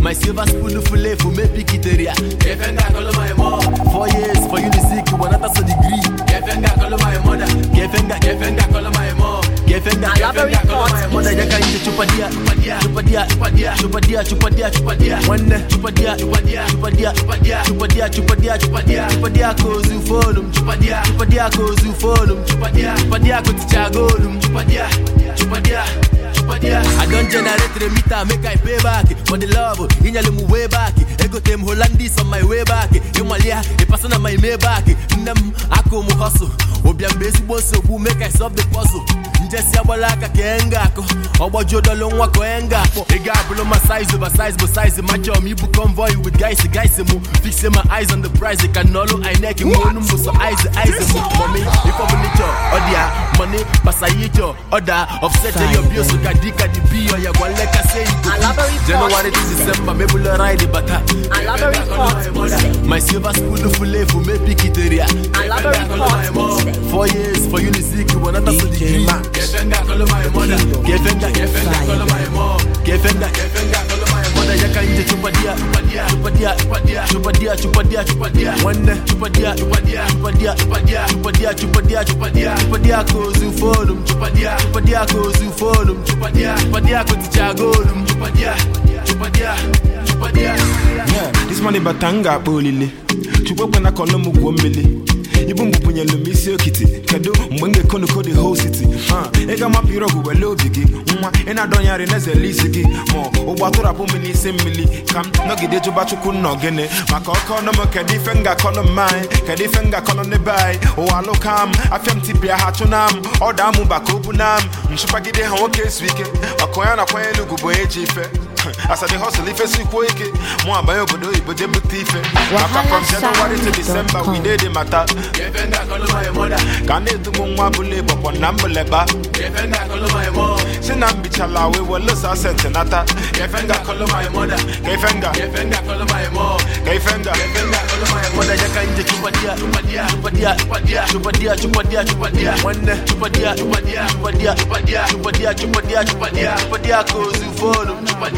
S12: My silver spoon fule for me pikiteria. Kefenga kolo my mom. Four years for you to seek one another so degree. Kefenga kolo my mother. Kefenga kefenga kolo my mom. Kefenga kefenga kolo my mother. Yaka into chupadia chupadia chupadia chupadia chupadia chupadia chupadia. One chupadia chupadia chupadia chupadia chupadia chupadia chupadia chupadia kozu folum chupadia chupadia kozu folum I don generate the make I pay back. For the love, inyale mu way back. Ego tem Hollandis on my way back. Imalia, a person on my way back. aka ụmụ hustle obi mgbe ezigbo nsogbu make I solve the puzzle njesi agbala aka ka enga akụ ọgbajuo dọlụ nwa ka onye nga akpọ ị ga ma size over size bụ size machọọ m ibu convoy with guys guys mụ fixe my eyes on the prize ka nọlụ inec nwe onu m bụ eyes eyes mụ mọmi ife ọbụla ịchọ mọni pasa ịchọ ọ ka ka bi ọya gwa igbo mebụlụ bata my silver efu mebi Four years for Unizik, you wanna pass the degree. Gefenda call my mother. Gefenda,
S15: this money batanga ibu mgbe bụnyelu m isi okiti kedu mgbe m ga-ekonukọ the whole city ị ga-amapụ irọgụ wele obi gị nwa ị na-adọnyarị n'ezele isi gị ma ụgbọ atụrapụ m n'isi mmiri ka m nọgide jụba chukwu nna ogene maka ọkọ ọnụ m kedu ife m ga-akọnụ m anyị kedu ife m ga-akọnụ n'ebe anyị ụwa alụka m afịa m tibia ha chụna m ọda amụ baka obu m nchụpagide ha nwoke ezu ike maka onye na-akwanye n'ugwu bụ onye ji ife asade hustle ife sikwo ike mụ abanye obodo oyibo jee ife maka from January to December we dey mata ka na-etubu nwa na si na mbichala wee nata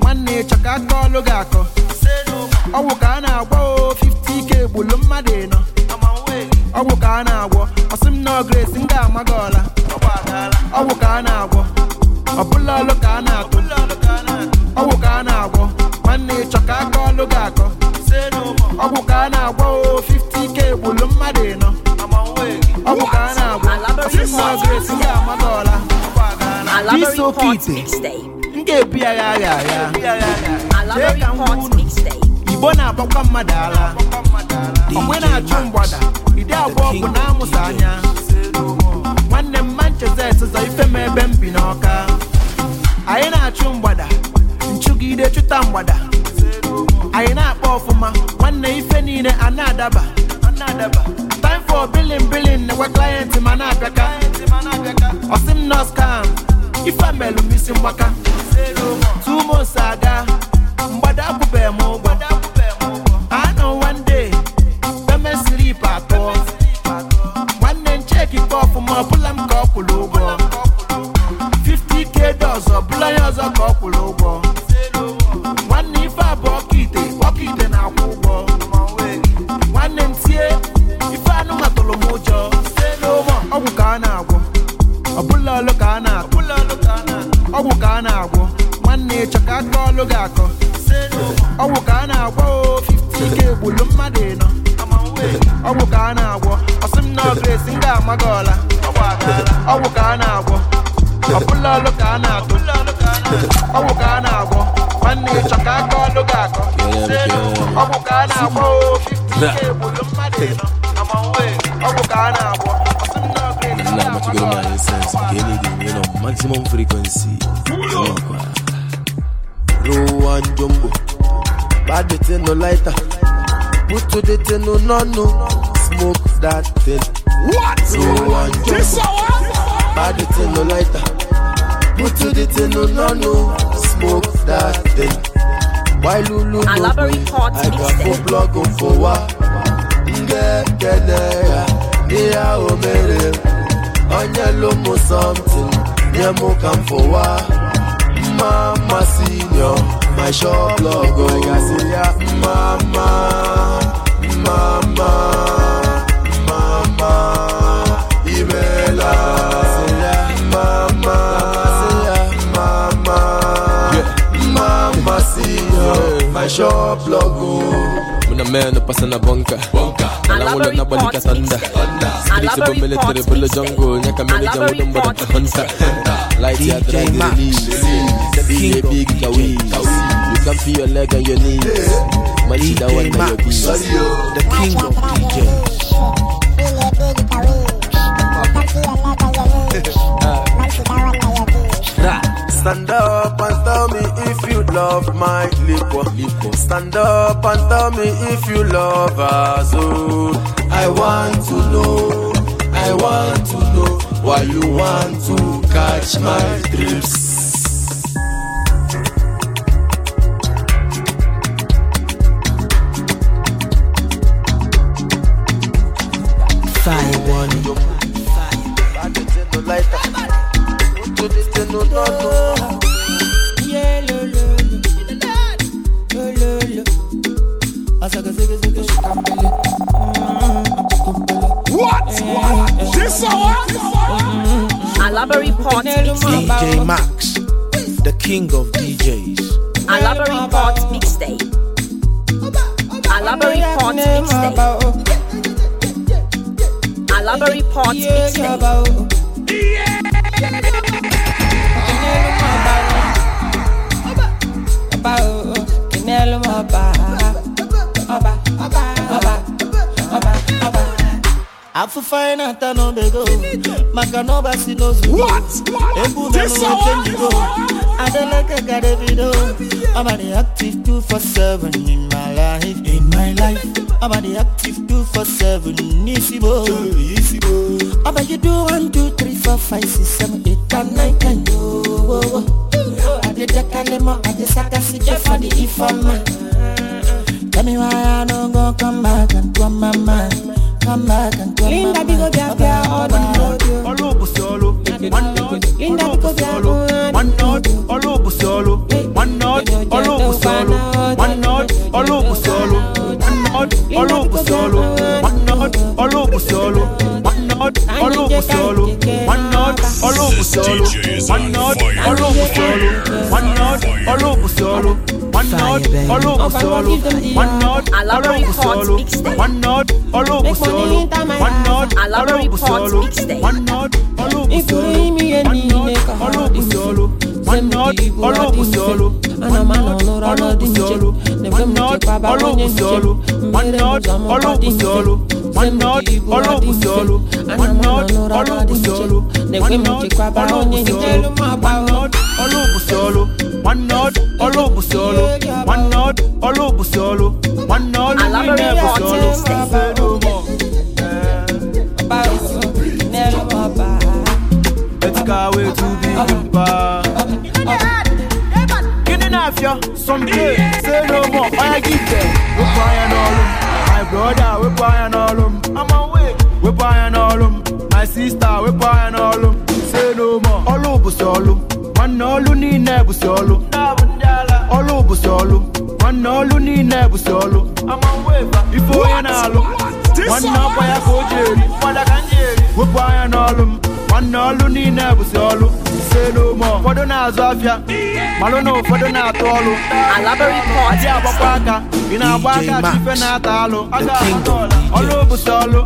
S14: nwanne chọka ka aka ọlụ gị akọ ọgwụ ka a na-agwọ o 50k gbulu mmadụ ịnọ ọgwụ ka a na-agwọ ọsị m na grace m ga-ama gị ọla ọgwụ ka a na-agwọ ọbụla ọlụ ka a na-atụ ọgwụ ka a na-agwọ nwanne chọka ka aka ọlụ gị akọ ọgwụ ka a na-agwọ o 50k gbulu mmadụ ịnọ ọgwụ ka a na-agwọ ọsị m na grace m ga-ama gị ọla Alabarin Park
S2: Mixtape. ga ebi agha ya agha agha chee ka m unu
S14: igbo na-agbakwa mmadụ ala onwe na-achụ mgbada ide abụọ bụ na amụsa anya nwanne m manchester zọ ife m ebe m bi n'ọka anyị na-achụ mgbada nchụgide chụta mgbada anyị na-akpa ọfụma nwanne ife niile a na-adaba time for billing billing nekwa client ma na-abịaka ọsị m nọs kam ife melụ m isi mgbaka Tumo saga, mbada kupe mugo. I know one day, the me sleep at atọ. One then check it off, 50k ya a blind as a ụgwọ. ịchọ ka bọọlụ ga-akọ ka a na-agwọ o gbulu mmadụ ịnọ ọgwụ ka na na ọgresi ga gị ọla ọgwụ ka a na-agwọ ọbụla ọlụ ka a na-atụ ọgwụ ka a na-agwọ nwanne ịchọ ka aka ọlụ akọ ọgwụ ka a na-agwọ
S12: o
S14: gbulu mmadụ ịnọ ọgwụ ka a na-agwọ
S12: One jumbo. Bad the thing no lighter. Put to the thing no no no. Smoke that thing. What? So one jumbo. Bad thing no lighter. Put to the thing no no no. Smoke that thing. Why Lulu? I love a report. I got four blog on Onye Nye for what? Mama senior. my shop log I ga-asị ya mama mama mma mma mma mma imeela my shop muna meno pasa na bonka nalangulo nabalika tanda sibixibo military bulo jongo nyaka meneja mudombodata hunta light ya dradilili sebiye big Come feel your leg and your knees. Yeah. My leader one of your beats. The king of DJs. uh. Stand up and tell me if you love my liquor. Stand up and tell me if you love as Oh, I want to know, I want to know why you want to catch my drips.
S2: Alabari Pot DJ
S1: Max, the king
S2: of DJs. Alabari Pot Mixtape. Alabari Pot Mixtape. Alabari Pot Mixtape.
S16: About,
S4: afụfe anyị na-ata n'obego maka na ọba si n'ozu egwu nanụwoke njigo adeleke gara ebido ọbadị active 247 in my life in my life ọbadị active 247 n'isibo ọba you do 1 2 3 4 5 6 7 8 9 10 owowo adịdekalịmọ adịsakasị jefọdị ifeọma Tell me why I
S14: don't go come back and come my mind Linda biko bịa bịa ọdụ ọlụ bụsi ọlụ Linda biko bịa ọlụ ọlụ bụsi ọlụ ọlụ bụsi ọlụ ọlụ bụsi olóògùn sọ̀rọ̀ one nod olóògùn sọ̀rọ̀ one nod olóògùn sọ̀rọ̀ one nod olóògùn sọ̀rọ̀ one nod olóògùn sọ̀rọ̀ one one one ọlọ́ọ̀bùsì ọlọ́ ọlọ́ọ̀bùsì ọlọ́ ọlọ́ọ̀bùsì ọlọ́ ọlọ́ọ̀bùsì ọlọ́ ọlọ́ọ̀bùsì ọlọ́ ọlọ́ọ̀bùsì ọlọ́ ọlọ́ọ̀bùsì pure, some pay. Say no more, I give them. We buy and all them. My brother, we buy and all them. I'm away, we buy all My sister, we buy all Say no more, all over solo. One all bụ solo. Ọlụ bụ solo. ọlụ niile bụ solo. Ife onye na-alụ. Nwanne ọkwa ya ka o ji eri. Wepụ anya n'ọlụ nwanne ọlụ niile bụzi ọlụ ise n'ume ụfọdụ na-azụ afịa malụ na ụfọdụ na-atụ ọlụ adị agbakwa aka ị na-agba aka chife na-ata alụ ọlụ bụzi ọlụ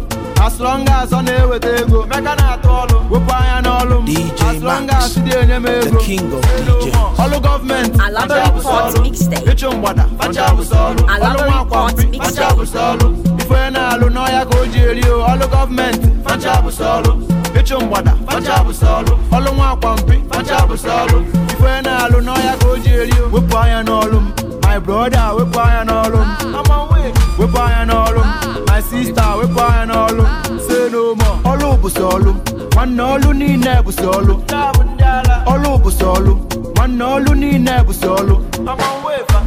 S14: asụlọnga asọ na-eweta ego meka na-atụ ọlụ wepụ anya n'ọlụ m asụlọnga asị dị enye m ego ọlụ gọọmenti ịchụ mgbada ọlụ nwa akwapị ife na-alụ n'ọhịa ka o ji eri ọlụ gọọmenti facha bụsị ọlụ ịchụ mgbada ọlụ nwa akwa mpi ife na-alụ n'ọhịa ka o ji eri wepụ anya n'ọlụ m my brother wepụ anya n'ọlụ ah. m wepụ anya n'ọlụ m ah. my sister wepụ anya n'ọlụ m ah. say no more ọlụ bụ sọlụ nwanne ọlụ niile bụ sọlụ ọlụ bụ sọlụ nwanne ọlụ niile bụ sọlụ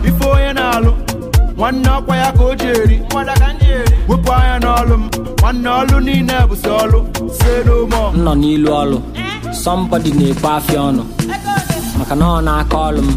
S14: ife onye na-alụ nwanne ọkwa ya ka o ji eri wepụ anya n'ọlụ m nwanne ọlụ niile bụ sọ ọlụ say
S16: nọ n'ilu ọlụ sọmbọdị na-ekwe afịa ọnụ maka na ọ na-aka ọlụ m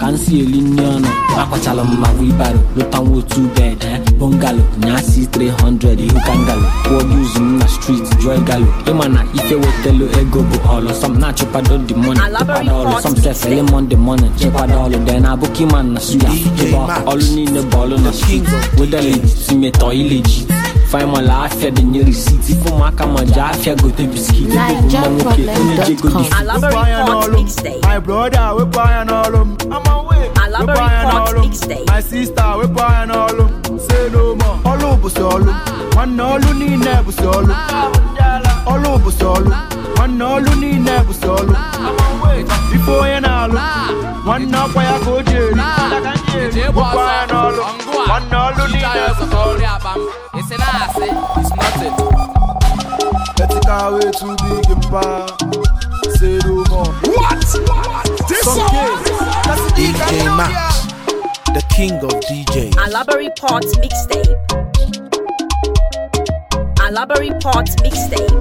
S16: ka m si eli nri ọnụ akwachala m ma wibaru lụtanwa otu bed eh? bungalow nyasi 300 you can gallop kwuo gị na street joy galo ịma na ife wetelu ego bụ ọlụ na-achịkwado the money ịkwado sọm sefele monde morning ịkwado ọlụ na abụkị ma na suya ịba ọlụ niile bụ na street ileji Fay man la afya denye risit Si fon maka manja afya gote
S14: biskit Nige problem.com
S3: Elaborate Fort Mix Day
S14: My brother we buyin' all um Elaborate Fort Mix Day My sister we buyin' all um Say no more Olu bu solu Wan olu ni ne bu solu Olu bu solu Wan olu ni ne bu solu Wan na kwa ya go jeli ah. Buyin' all Wan olu ni ne bu
S5: solu na-asị na-asị is nothing
S14: etikawa
S1: etu dị gị mba sere ume What?
S14: This
S5: song?
S1: DJ Max, the king of DJs. Alabari Port
S2: mixtape. Alabari Port mixtape.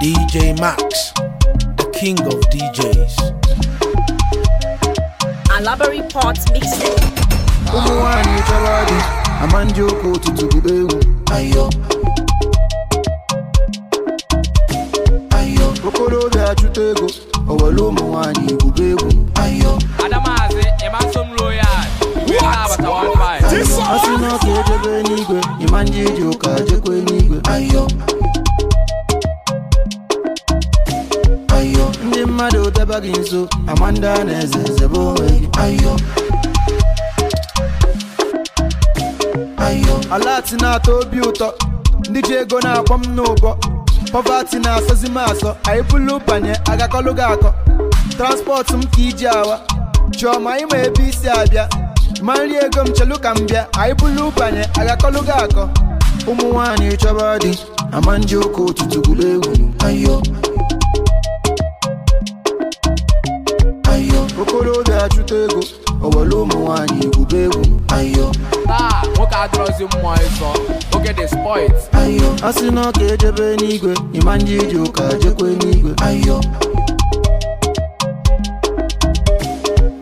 S1: DJ Max, the king of DJs.
S2: Alabari Port mixtape. ama
S14: ndị ụka ụtụtụ bụrụ egwu obi achụta ego owere ụmụ nwanyị igwube egwu asị na ọka ejebe n'igwe ịma ndị iji ụka Ayo! n'igwe ndị mmadụ deba gị nso ama ndị a na-eze zebe onwe gị alati na-atọ obi ụtọ ndị ji ego na-akpọ m n'ụbọ pọvati na-asọzi m asọ anyị bụlụ banye agakọlụ gị akọ transpọtụ m ka iji awa chiọma ma ebe isi abịa ma nri ego m chelu ka m bịa anyị bụlụ banye agakọlụ gị akọ ụmụ nwaanyị chọba dị ama ndị ụka ụtụtụ gwuru egwu okorobịa achụta ego owelu ụmụ nwanyị igwube egwu ayo taa ah, nwoke adịrọzi mmụọ ịsọ oge dị spoit ayo a sị na ọka ejebe n'igwe ịma ndị iji ụka jekwe n'igwe ayo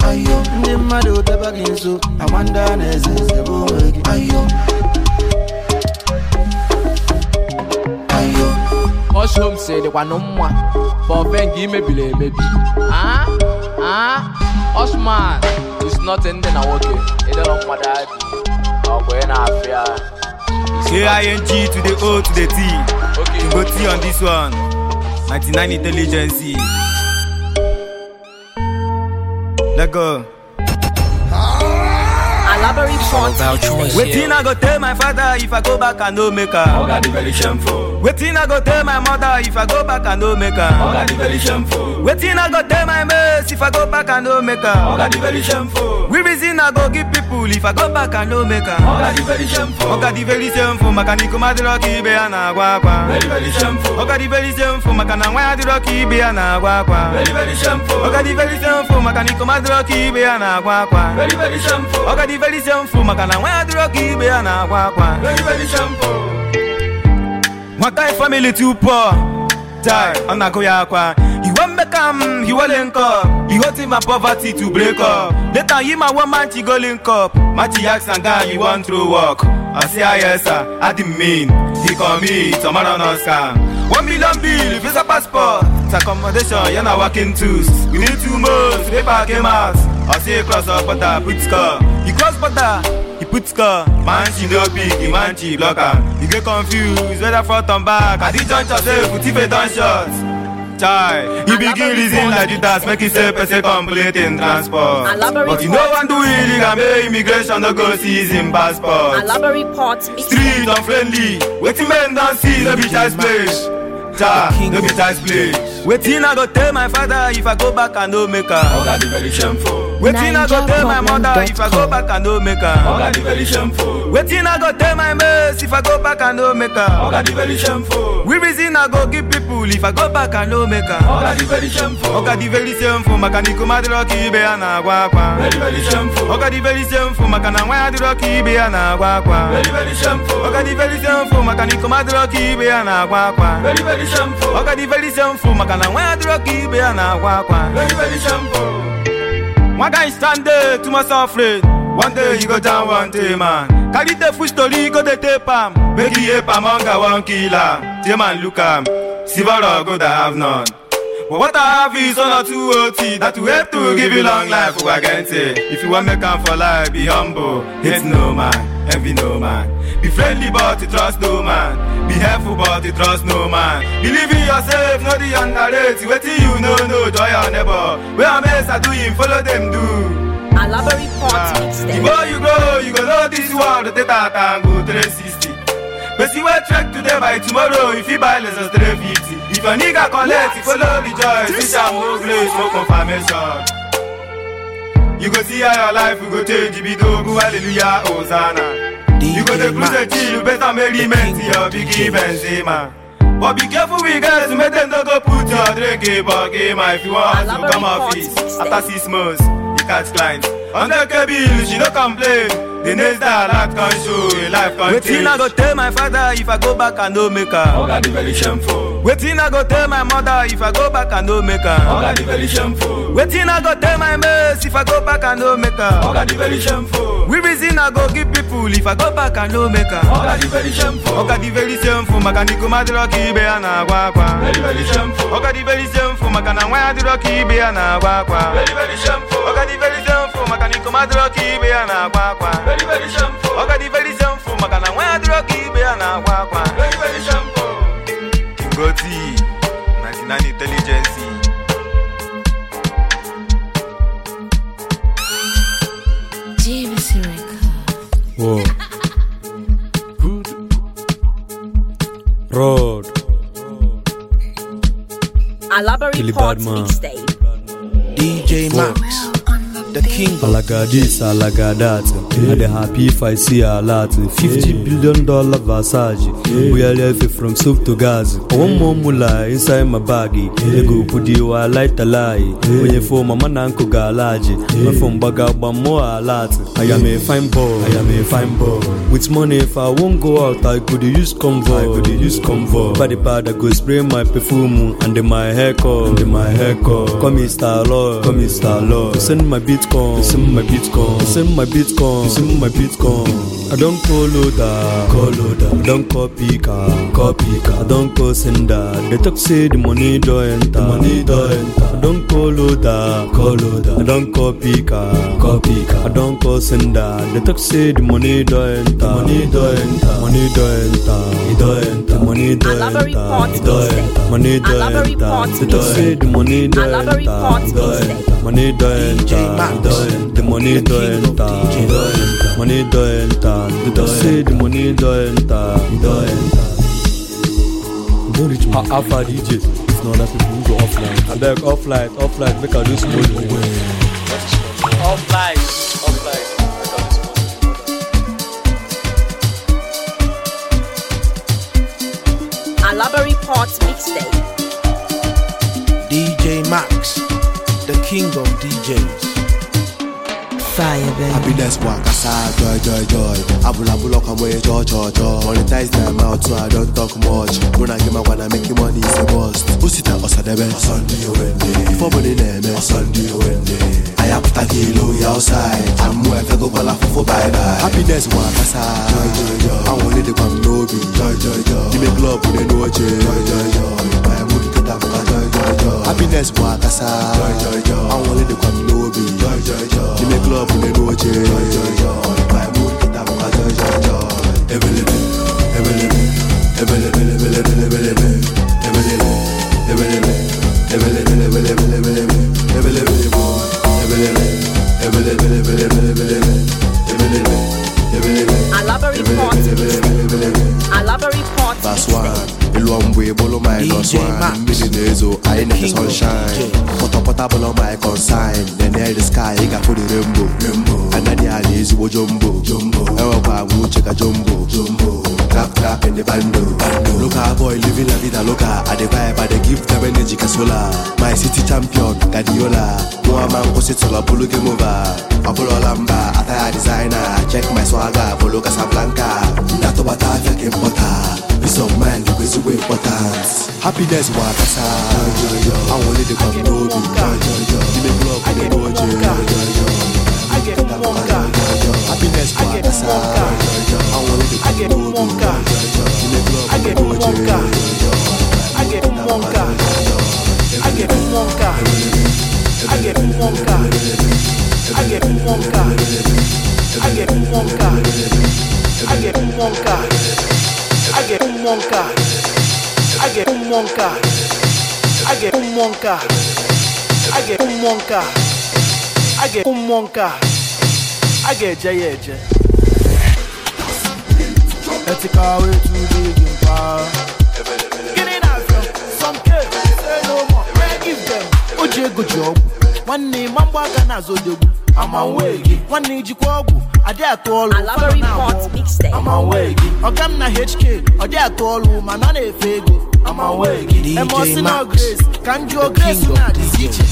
S14: ayo ndị mmadụ deba gị nso ama ndị a na-eze ezebe onwe gị ayo ayo ọshom
S12: si dịkwanụ mma bụ bọve nke imebiri emebi
S5: ah, ah. Osman is nothing dị na nwoke ịdọrọ mmadụ adị ọgwụ ị na-afịa say ing to the o to the t okay. to go t on this one
S17: 99 intelligence let go
S2: Elaborate front. Waiting, I
S17: go tell my father if I go back, I no make am Oh, God, very shameful. Wetin I go tell my mother if I go back i no make her? Oh, God, very shameful. Wetin I go tell my mates if I go back i no make her? Oh, God, very shameful. We reason I go give people if I go back i no make her? Oh, God, very shameful. very shameful. Maka ni kuma diro Very very shameful. Maka na nwa diro ki be Very very shameful. very shameful. Very very shameful. very shameful. Maka na nwa My guy family too poor. Die, I'm not going aqua. You want me come, you will link up. You poverty to break up. Later, you my one man, she cup link up. Matty ask and guy, you want throw work I say, ah, yes, sir. I didn't mean. He call me, tomorrow no scam. One million bill, visa passport. It's accommodation, yana working tools. We need two months, paper came out. I say, cross up, but put score. You cross, but put score man she no big man she block am you get confused whether front and back as e jump chop sef tife don shot chai you begin reason like judas make you say person complete in transport but you no wan do illegal make immigration no go see him passport street unfriendly wetin men don see no be child's play cha no be child's play. wetin I go tell my father if I go back and no make her. Oh, I go tell my mother if I go back and no make her. Oh, I go tell my mates if I go back and no make her. We reason I go give people if I go back and no make her. very shameful. very ya na Very very shameful. very shameful. Very very shameful. di very shameful. Makaniku ya na Very very shameful. na nwa adịrọ ka ibe ya na-agwa akwa nwa guy stand dey too much afraid one day you go down one day man carry the full go dey tape am make you help am hunger wan kill am tey man look am siboro go da have none but what i have is honor too ot that will help to give you long life ugwagente if you wan make am for life be humble hate no man envy no man Be friendly but you trust no man. Be helpful but you trust no man. Believe in yourself, not the underrated. wetin you know, no joy or never. Where I'm else are doing, follow them do.
S2: Elaborate parts ah. Before you grow,
S17: you go know this world, the back and go 360. But see what track today by tomorrow, if you buy less than 350. If a nigga collect, you follow the joy, this time will grace, no confirmation. You go see how your life will go change, be dogu, hallelujah, Hosanna. You go dey close T, you better make the men to your big Benzema. But be careful with guys, make them not go put your drink in game. Eh, if you want to come off after six months, you catch clients. the KB, she no complain. The next day, life can show, life can change. I go tell my father if I go back and no make her. Oh, God, very shameful. wetin i go tell my mother if i go back i no make am dị very
S11: shameful
S17: wetin i go tell my mates if i go back i no make am dị very shameful we reason i go give people if i go back i no make am oga dị very shameful oga maka ndị kuma di ibe ya na-agwa akwa oga di very shameful maka na nwa di dịrọ ibe na-agwa akwa oga di very shameful maka na na-agwa oga very shameful maka na ibe ya na-agwa akwa Brody, 99 Intelligence.
S7: Whoa. Good. Road.
S2: Alabari Parts Mixtape. DJ Max.
S7: the king. I like I dey happy if I see a lot. 50 yeah. billion dollar Versace. Yeah. We are left from soup to gas. Yeah. One more mula inside my baggy. Ego I like the lie. Yeah. When you phone, mama na galaji. Yeah. My phone baga more a I am a fine boy, With money, if I won't go out, I could use convo. I could use convo. By the I go spray my perfume and my And my haircut. Come, Mr. Lord, come, Mr. Lord. Send my beat bitcoin it's in my bitcoin it's in my bitcoin it's in my bitcoin i don call loader call loader i don copy car copy car i don call sender they talk say the money don enter money don enter i don call loader call loader i don copy car copy car i don call sender they talk say the money don enter money enter money don enter e enter money don enter e enter money don enter they talk say the money don enter money don enter. the money don't enter money don't enter they just say the money don't enter e don't enter don't reach my alpha dj if not other people go offline abeg offline offline make i do small one.
S16: offline offline.
S2: Library Parts Mixtape.
S1: DJ Max, the king of DJs.
S6: fire, baby. Happiness work aside, ah, joy, joy, joy. Abula bula come away, joy, joy, joy. Monetize mouth so I don't talk much. When I get my make you money, it's a bust. Who sit na Osadebe? Sunday, Wednesday. Before money, name, Sunday, na I have to kill you outside. I'm where I go, call for bye bye. Happiness work aside, ah. joy, joy, joy. I want to come, no be, joy, joy, joy. with a no joy, joy, joy. Happiness aside, the club full of boche Joy, joy, joy My mood kita buka joy, joy, joy Ebele, ebele, ebele, ebele, ebele, ebele wine, cause wine Mini nezo, I ain't never sunshine Pọtọ pọta bọlọ my consign Nenel the sky, ị ga the rainbow ezigbo jumbo agwa uche ka jumbo clap clap in the bando. bando. Local boy living la vida loca. I the vibe, I the give them energy casola. My city champion, gadiola One man was it solo game over. Apollo Lamba, attire designer. Check my swagger, follow Casablanca. Nato bata Peace of kasa. I want it to come
S1: to get one guy. Happiness, I get one guy. I get one guy. I get one I get one I get a ga-eje ya eje
S14: ethical Gịnị na Some ego ji ọgwụ, nwanne ịma mgba aka na odogwu. gị. Nwanne ijikwa ọgwụ, adị atụ ọlụ, ụfọdụ na ọgwụ. gị. Ọga m na HK, ọ atụ ọlụ, mana na-efe ego. gị. na ka m jụọ Grace na-adịzi iche.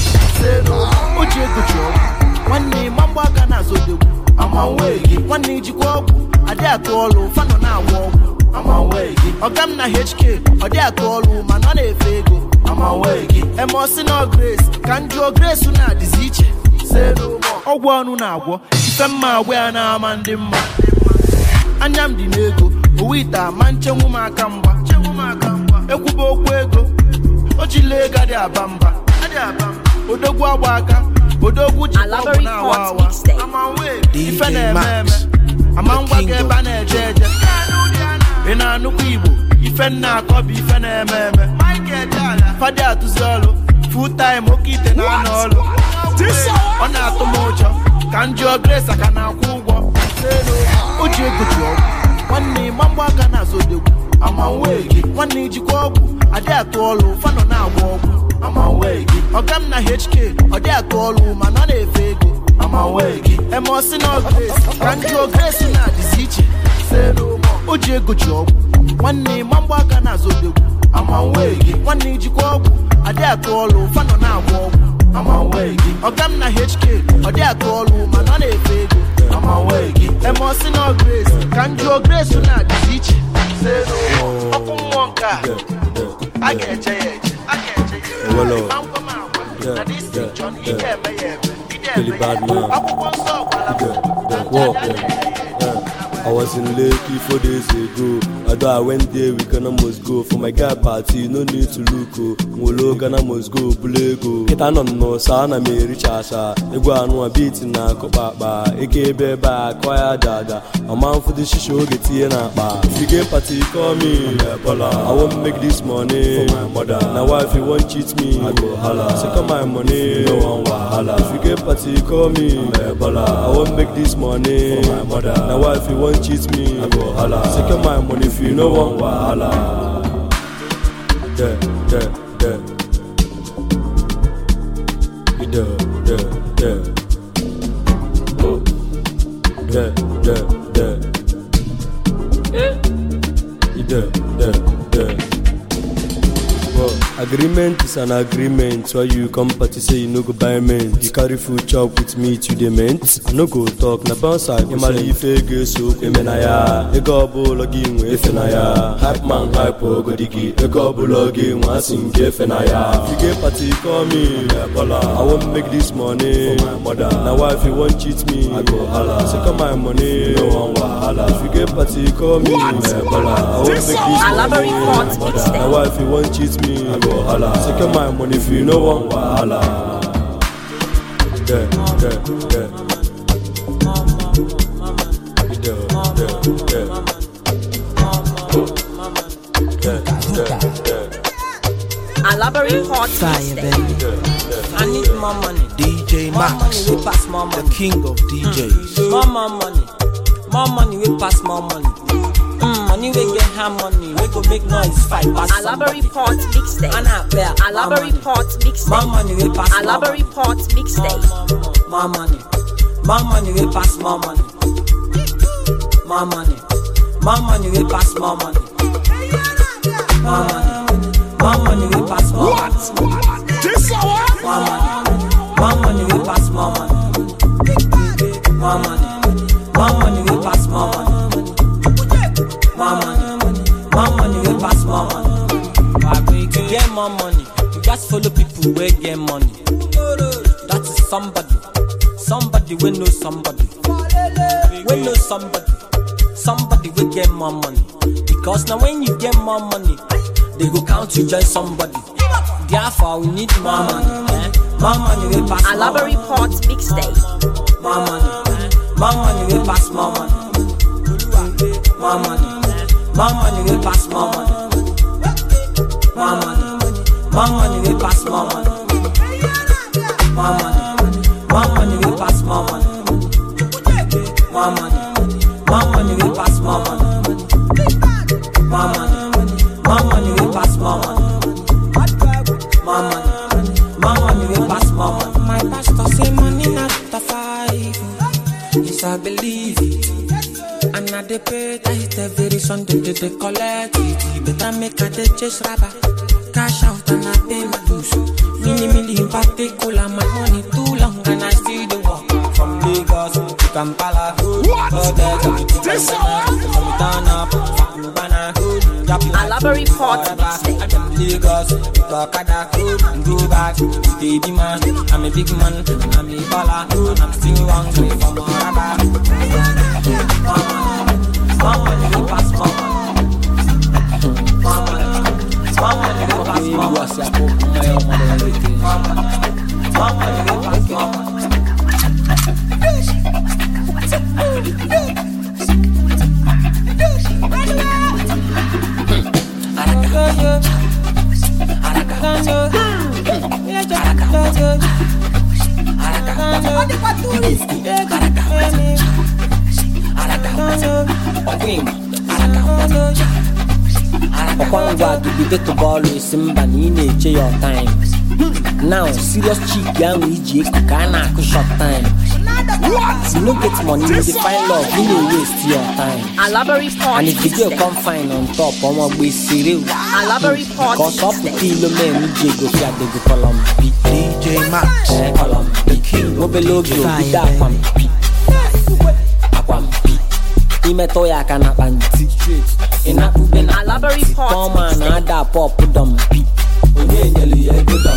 S14: O ego ji ọgwụ, nwanne mgba nwee gị nwanne ijikwa ọgwụ adị atụ ọlụ fanụ na-agwọ ọgwụ nwee gị ọga m na hk ọ dị atụ ọlụ mana ọ na-efe ego nwee gị emosi na ka ndị jụọ grace na-adịzi iche ọgwụ ọnụ na-agwọ ife mma agwọ ya na ndị mma anya m dị n'ego owe ite ama aka mgba ego odogwu jikwa na awa awa ife na-eme eme amangwa ga ebe a na-eje eje ị na-anụkwa igbo ife nna akọ bụ ife na-eme eme fadi atụzi ọlụ full time oke ite na anọ ọlụ ọ na-atụ m ụjọ ka m jụọ ka na-akwụ ụgwọ o ji ji ọgwụ nwanne aka na azodogwu amanwe gị nwanne ijikwa ọgwụ adị atụ ọlụ fanọ na-agba ọgwụ amanwe gị ọga na hk ọ dị atụ ọlụ mana ọ na-efe ego amanwe gị emeosi na grace ka ndị ogresi na-adịzi iche o ji ego ji ọgwụ nwanne ma mgba aka na-azụ odegwu amanwe gị nwanne ijikwa ọgwụ adị atụ ọlụ fanọ na-agba ọgwụ amanwe gị ọga na hk ọ dị atụ ọlụ mana ọ na-efe ego amanwe gị emeosi na grace ka ndị ogresi na-adịzi iche elu okwu mmụọ nke
S7: ga-eje ya ga I was in Lekki four days ago. Although I went there, we gonna must go. For my guy party, no need to look. Oh. Molo gonna must go, bulego. Kita no no, sana me rich asa. Egwa anwa beat na kopapa. Eke beba, kwaya dada. A man for the shisho get here na ba. If you get party, call me. I won't make this money for my mother. Now if you won't cheat me. I go holla. Second my money, no one wahala. If you get party, call me. I won't make this money for my mother. Now if you won't don't cheat me wahala go my money if you no wan wahala yeah yeah yeah agreement is an agreement why you come party say you no go buy mint you carry food chop with meat you dey mint i no go talk na bounce i go send ife ego eso eme na ya ego ọbụla gị nwe efe na ya hype man hype ogodi gị ego ọbụla gị nwa asị nke efe na ya you get party call me ebola i wan make this money for my mother na wife you wan cheat me i go hala my money no wan wahala if you get party call me ebola i wan make this money for my mother na wife you won cheat me wahala my money if you no wan wahala yeah
S2: hot fire, I need more money.
S1: DJ Max,
S2: more pass more
S16: money. the king of DJs. Mm. More, more money, more money, we pass more money. Money we get harmony, we go make noise fight pass A library
S2: pot mixtape. And I play a library money we pass. A mixtape.
S16: My money, my money we pass. My money, my money, my pass. My money, my money, my pass. What? What? This hour? money, my money we pass. My money, my money, my pass. My money. make more money. More money will pass more money. to get more money, you just follow people where get money. That is somebody, somebody we know somebody, we know somebody, somebody we get more money. Because now when you get more money, they go count you join somebody. Therefore we need more money. Eh? More money will pass. Alaba
S2: report big stay,
S16: More money, eh? more money will pass more money. More money. More money will pass more money. More money. More money will pass more money. More money. More money will pass more money. More money. More money will pass more money. More money. More money will pass more money. More money. More money will pass more money. My pastor say money not the five. Yes, I believe it. na dey pay tight every Sunday they dey collect it. Better make I dey chase rubber, cash out and I pay my dues. Mini mini in particular, my money too long and I still dey work from Lagos to Kampala. What? Hotel, this song? From Ghana, from Ghana, Alabari Port. Lagos, Bakada, go back, baby man. I'm a big man, I'm a baller, and I'm still hungry for more. Olha pra turista,
S3: caraca,
S16: ọkwa ngwa bido tụbọọlụ esi mba na ị na-eche ya ọtaim now serious chik ahụ iji eku ka na-akụ short time you no get money you dey find love you no waste your time
S2: and if the girl come
S16: fine on top ọmọ gbe sere o
S2: because
S16: ọ pụta ilo mee ji ego fi adego kọlọm bi DJ Max kọlọm imetọ ya aka na akpa ntị ịnapụbe na tọma na ada dọm pi. onye nyere ya ego pi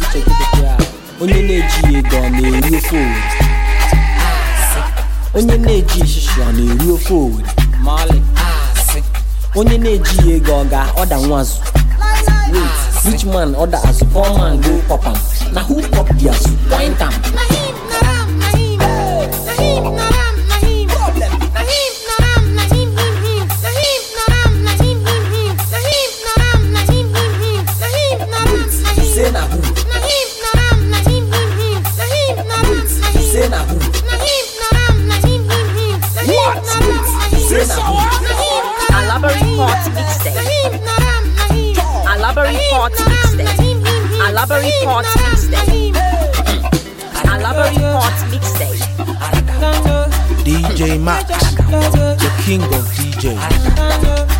S16: uche dọmpi onye na-eji ego ọ na-eri ofe owere ah, onye na-eji ishishi ọ na-eri ofe owere onye na-eji ego ọ ga-ọda nwazụ rich man ọda azụ poor man go pop na who pop the azụ point am
S2: pot mix day. Strawberry pot mix day.
S1: DJ Max, the king of DJs.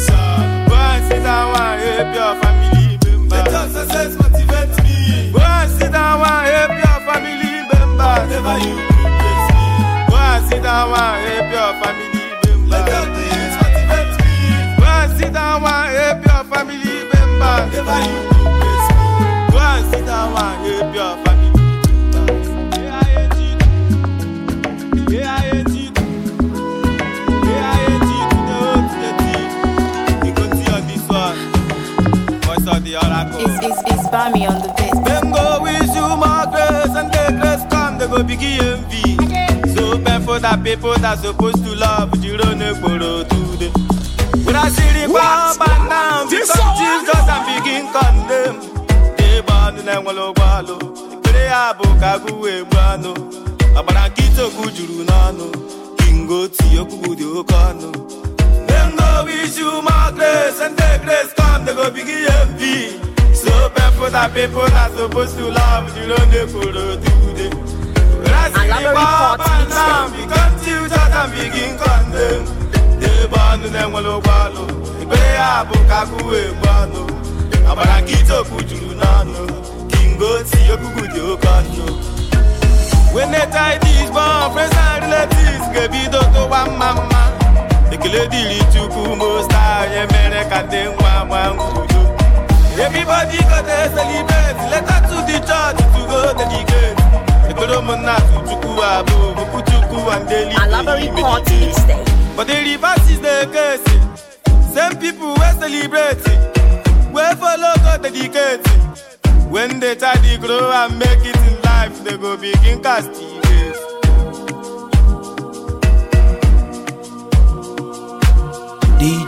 S17: sit down and help your family member. success motivates me. Go and sit down and Never you replace me. Go and sit down and help your family member. me. Go and sit down and Never you replace me. Go and sit down and the oracle.
S3: It's, it's, it's on the beat. Them
S17: go with you more grace and the grace come, they go begin envy. So for that people that supposed to love, you don't know today. I see the because Jesus and begin condemn. They born in a wallow. brano. juru n'ọnụ, kingo tinye okwu Them go wish you more grace and grace come, they go begin envy. So people that people are supposed to love, you don't they follow today. I love the report and now we continue and begin condemn. They ban them all over. ya up, Kaku, Bano. Abarakito, Kujunano. Kingo, Tiyoku, Yokano. When they tie these bomb, and relatives, give me the one mama. ekele dịrị chukwu most high emere ka ndị nwa nwa udo everybody go dey celebrate later to the church to go dedicate ekpere ụmụnna chukwu abụ okwu chukwu and
S2: daily
S17: meditate but the reverse is the case same people wey celebrate wey follow go dedicate when they try to grow and make it in life they go begin cast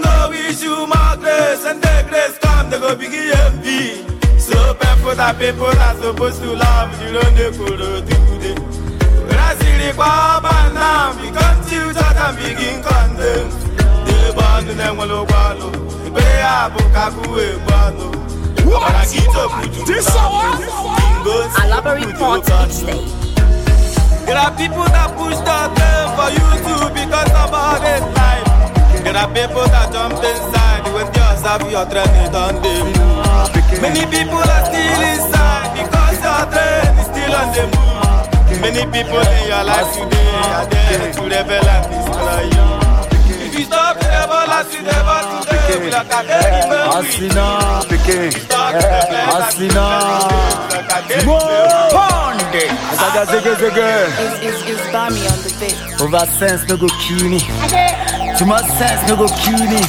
S17: no issue, my grace and their grace come, they go begin envy. So people that people are supposed to love, you don't know could do When I see the Baba now, we come to you, and begin condemn. The band and then will wallow, the pay up, Kaku, Bano. What? This hour? Elaborate part each There are people that push that them for you too because of all this life. There are people that jump inside when yours have your train on the move. Many people are still inside because your train is still on the move. Many people in your life today are there to rebel and destroy you. If you you you Asina, Asina, It's, it's, it's
S4: on the beat. Over sense no go Too much sense no go kill me.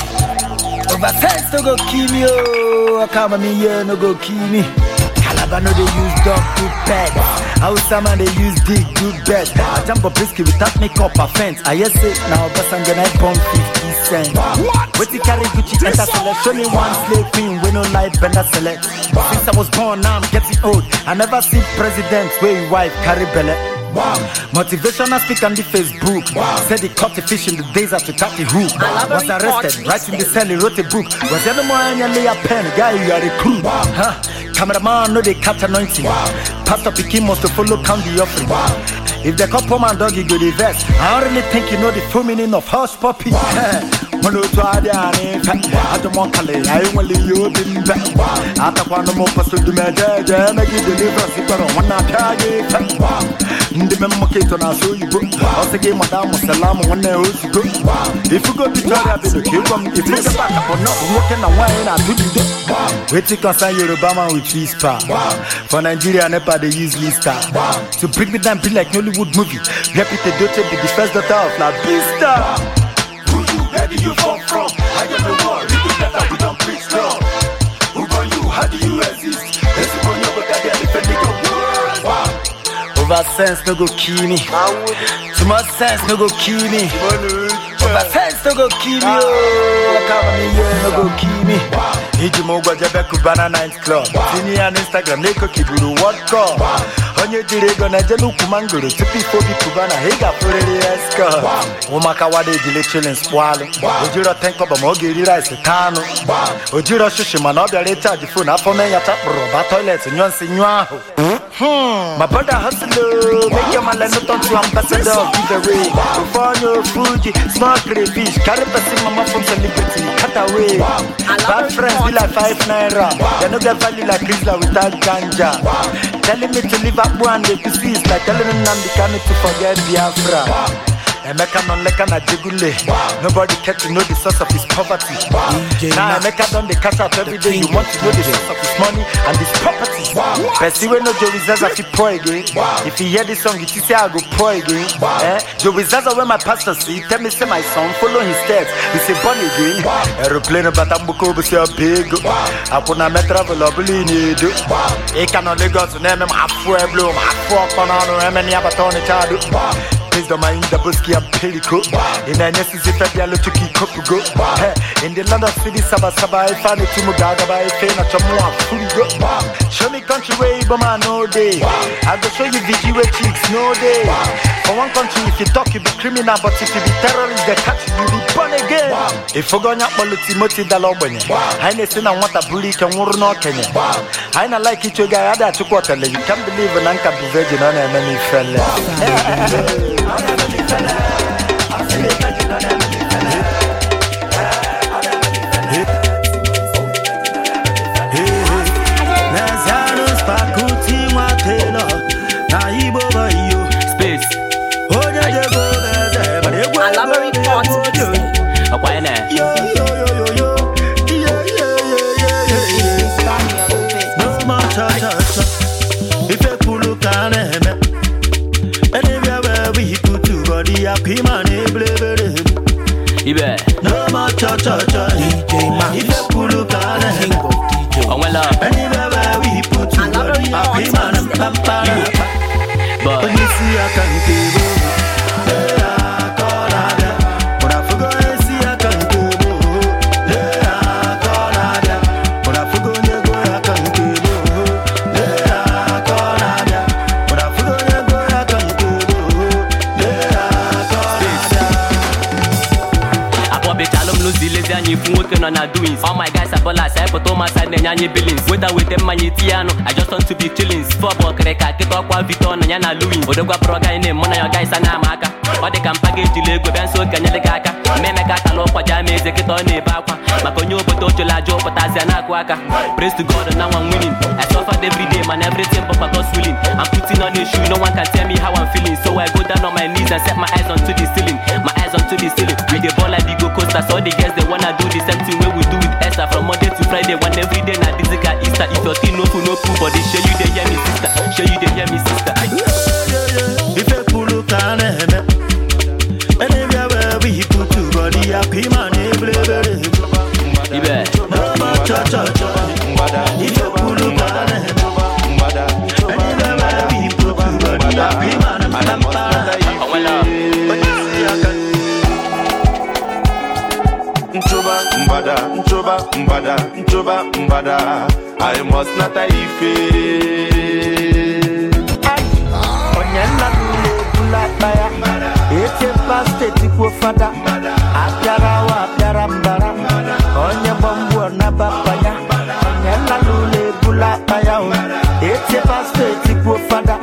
S4: Over sense no go kill me. Oh, come me here no go kill me. Calabar no dey use dog to pet. Hausa man dey use dick do bet. I jump a brisket without makeup fence, I hear say 'Na but I'm gonna bomb 50 cents. What? What you carry Gucci enter select? Only one slave queen, wey no like bender select. Mr. I was born, now I'm getting old. I never see presidents where wife carry belly. Motivational speaker on the Facebook. say Said he caught the fish in the days after cut the hook. Was arrested, right in the cell, he wrote a book. Was any more any pen? Guy, you are a Cameraman no they catch anointing. Wow. Pastor Pikin must follow count the offering. If the couple man dog, you go the I don't really think you know the full meaning of horse puppy. Wow. mọlọtọ adị adi mfe adụmọkali anyị nwere ihe obi mbe atakwana m ụfọsụ dumeje eje emegide livres kpọrọ nwanne apịa gị me na-asụ oyibo ọsị gị mada mụsala m nwanne na nwaanyị na-atụ bido wetin concern yoruba man with lister. For Nigeria, Nepal they use lister. So bring me down, be like Hollywood movie. Reputed daughter be the first daughter of La Vista. Who you, where do you come from? I am the war, you do better, we don't preach no Who are you, how do you exist? This is your book, I defend the Over sense, no go kill me. Too much sense, no go kill me. Super sense no go kill me Come on here no go kill me iji ụgwọ jebe kubana night club tinye ya n'instagram n'ekokiburu world cup onye jiri ego na-ejele ukwu mangoro tupu bi kubana ị ga-afụrịrị ya skọt ụmụaka wada ejile chilin spụalụ ojiro tenkọba ma ọ ga-eri rice taa anụ ojiro shishi mana ọ bịara ịchaji fon afọ mee ya chakpụrụ ba toilet nyụọ nsị nyụọ ahụ
S3: Hmm.
S4: My brother hustler, make your man no talk to ambassador of Viveray. Bufano, Fuji, smart fish carry person mama from celebrity, cut away. Bad friends be like five naira, they no get value like Grizzly without ganja. Telling me to live up one day to see is like telling them I'm the to forget Biafra. Emeka non leka na jigule. Nobody care to know the source of his poverty. Now Emeka don dey cash up every day. You want to know the source of his money and his property. Person wey no joe Zaza fit pour again. If you hear this song, you think say I go pour again. Eh? joe Joey Zaza wey my pastor see, tell me say my son follow his steps. He say born again. Aeroplane bata mbuko bụ si ọbịgo. Akwụna me travel ọbụla ị na-edo. Ịka nọ Lagos na-eme m afụ eblo m afụ ọkpọ n'ọnụ eme na ya bata ọnịcha Wisdom ainda busque empírico Ina necessidade ya lutu kikopugo In the land of city saba saba Ifani tumu gaga ife na chamua furigo Show me country where Iboma no day I go show you VG where chicks no day For one country if you talk you be criminal But if you be terrorist they catch you be born again If you go nyakpo luti moti no kenye like Ahora no diferente we are pimane blebere ibe n'ọma chọchọchọ ije ma ife pụrụ ka a na-ego onwela enibebe wiputu apimane mpampara onye isi aka nke ebe
S10: nọ na doings all my guys are ballers anyị na-enye anyị billings weta weta mmanya ya anụ I just want to be chillings fọbụ ọkịrịka kịta ọkwa Victor na ya na Louis odokwapụrụ ọgaghị na-emu na ya ọgaghịsa na amaka ọ dị ka mpa ga-ejili ego bịa nso aka mmemeka akala ụkwa ja ama eze na-ebe akwa maka onye obodo ochela aja ụpụtazia na-akụ aka praise to God na nwa winning I suffered every day man everything but God's willing I'm putting on a shoe no one can tell me how I'm feeling so I go down on my knees and set my eyes onto the ceiling my eyes onto sisters all the girls they wanna do the same thing wey we do with esther from monday to friday one every day na this guy easter if your thing no full no full but this show you dey hear me sister show you dey hear me sister.
S15: father. I must not ife.
S4: Onyena ebula bula ya, Eche paste tipo fada. Apiara awa, apiara mbara. Onye bombu na papaya. Onyena ebula bula ya, Eche paste tipo fada.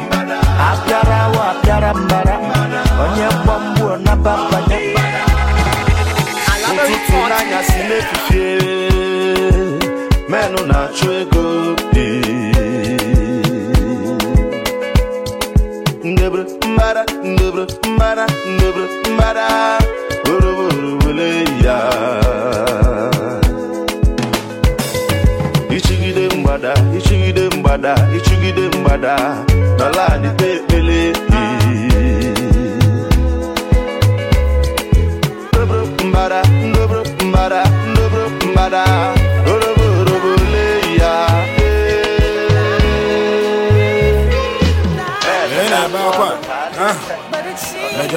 S4: achụ ego
S14: ndebere mbara ndebere mbara ndebere mbara
S15: oroboro wele ya ichigide ichigide mgbada
S14: ichigide mgbada n'ala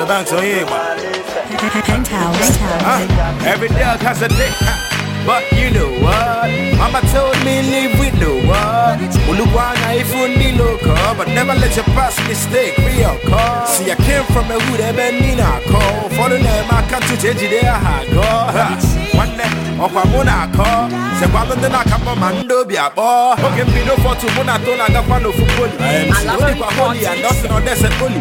S14: your
S15: dance on oh, here, Penthouse. every dog has a dick. But you know what? Mama told me live with no one. Uluwana if you need local, but never let your past mistake be your call. See, I came from a hood, I been in a call. For the I can't change it, I go. One day. ọkwa mụ na-akọ sekwalụ ndị na ma ndị obi akpọ oge mbido fọtụ mụ na to na-agakwa n'ofu poli odikwa holi and nothing on
S4: dese poli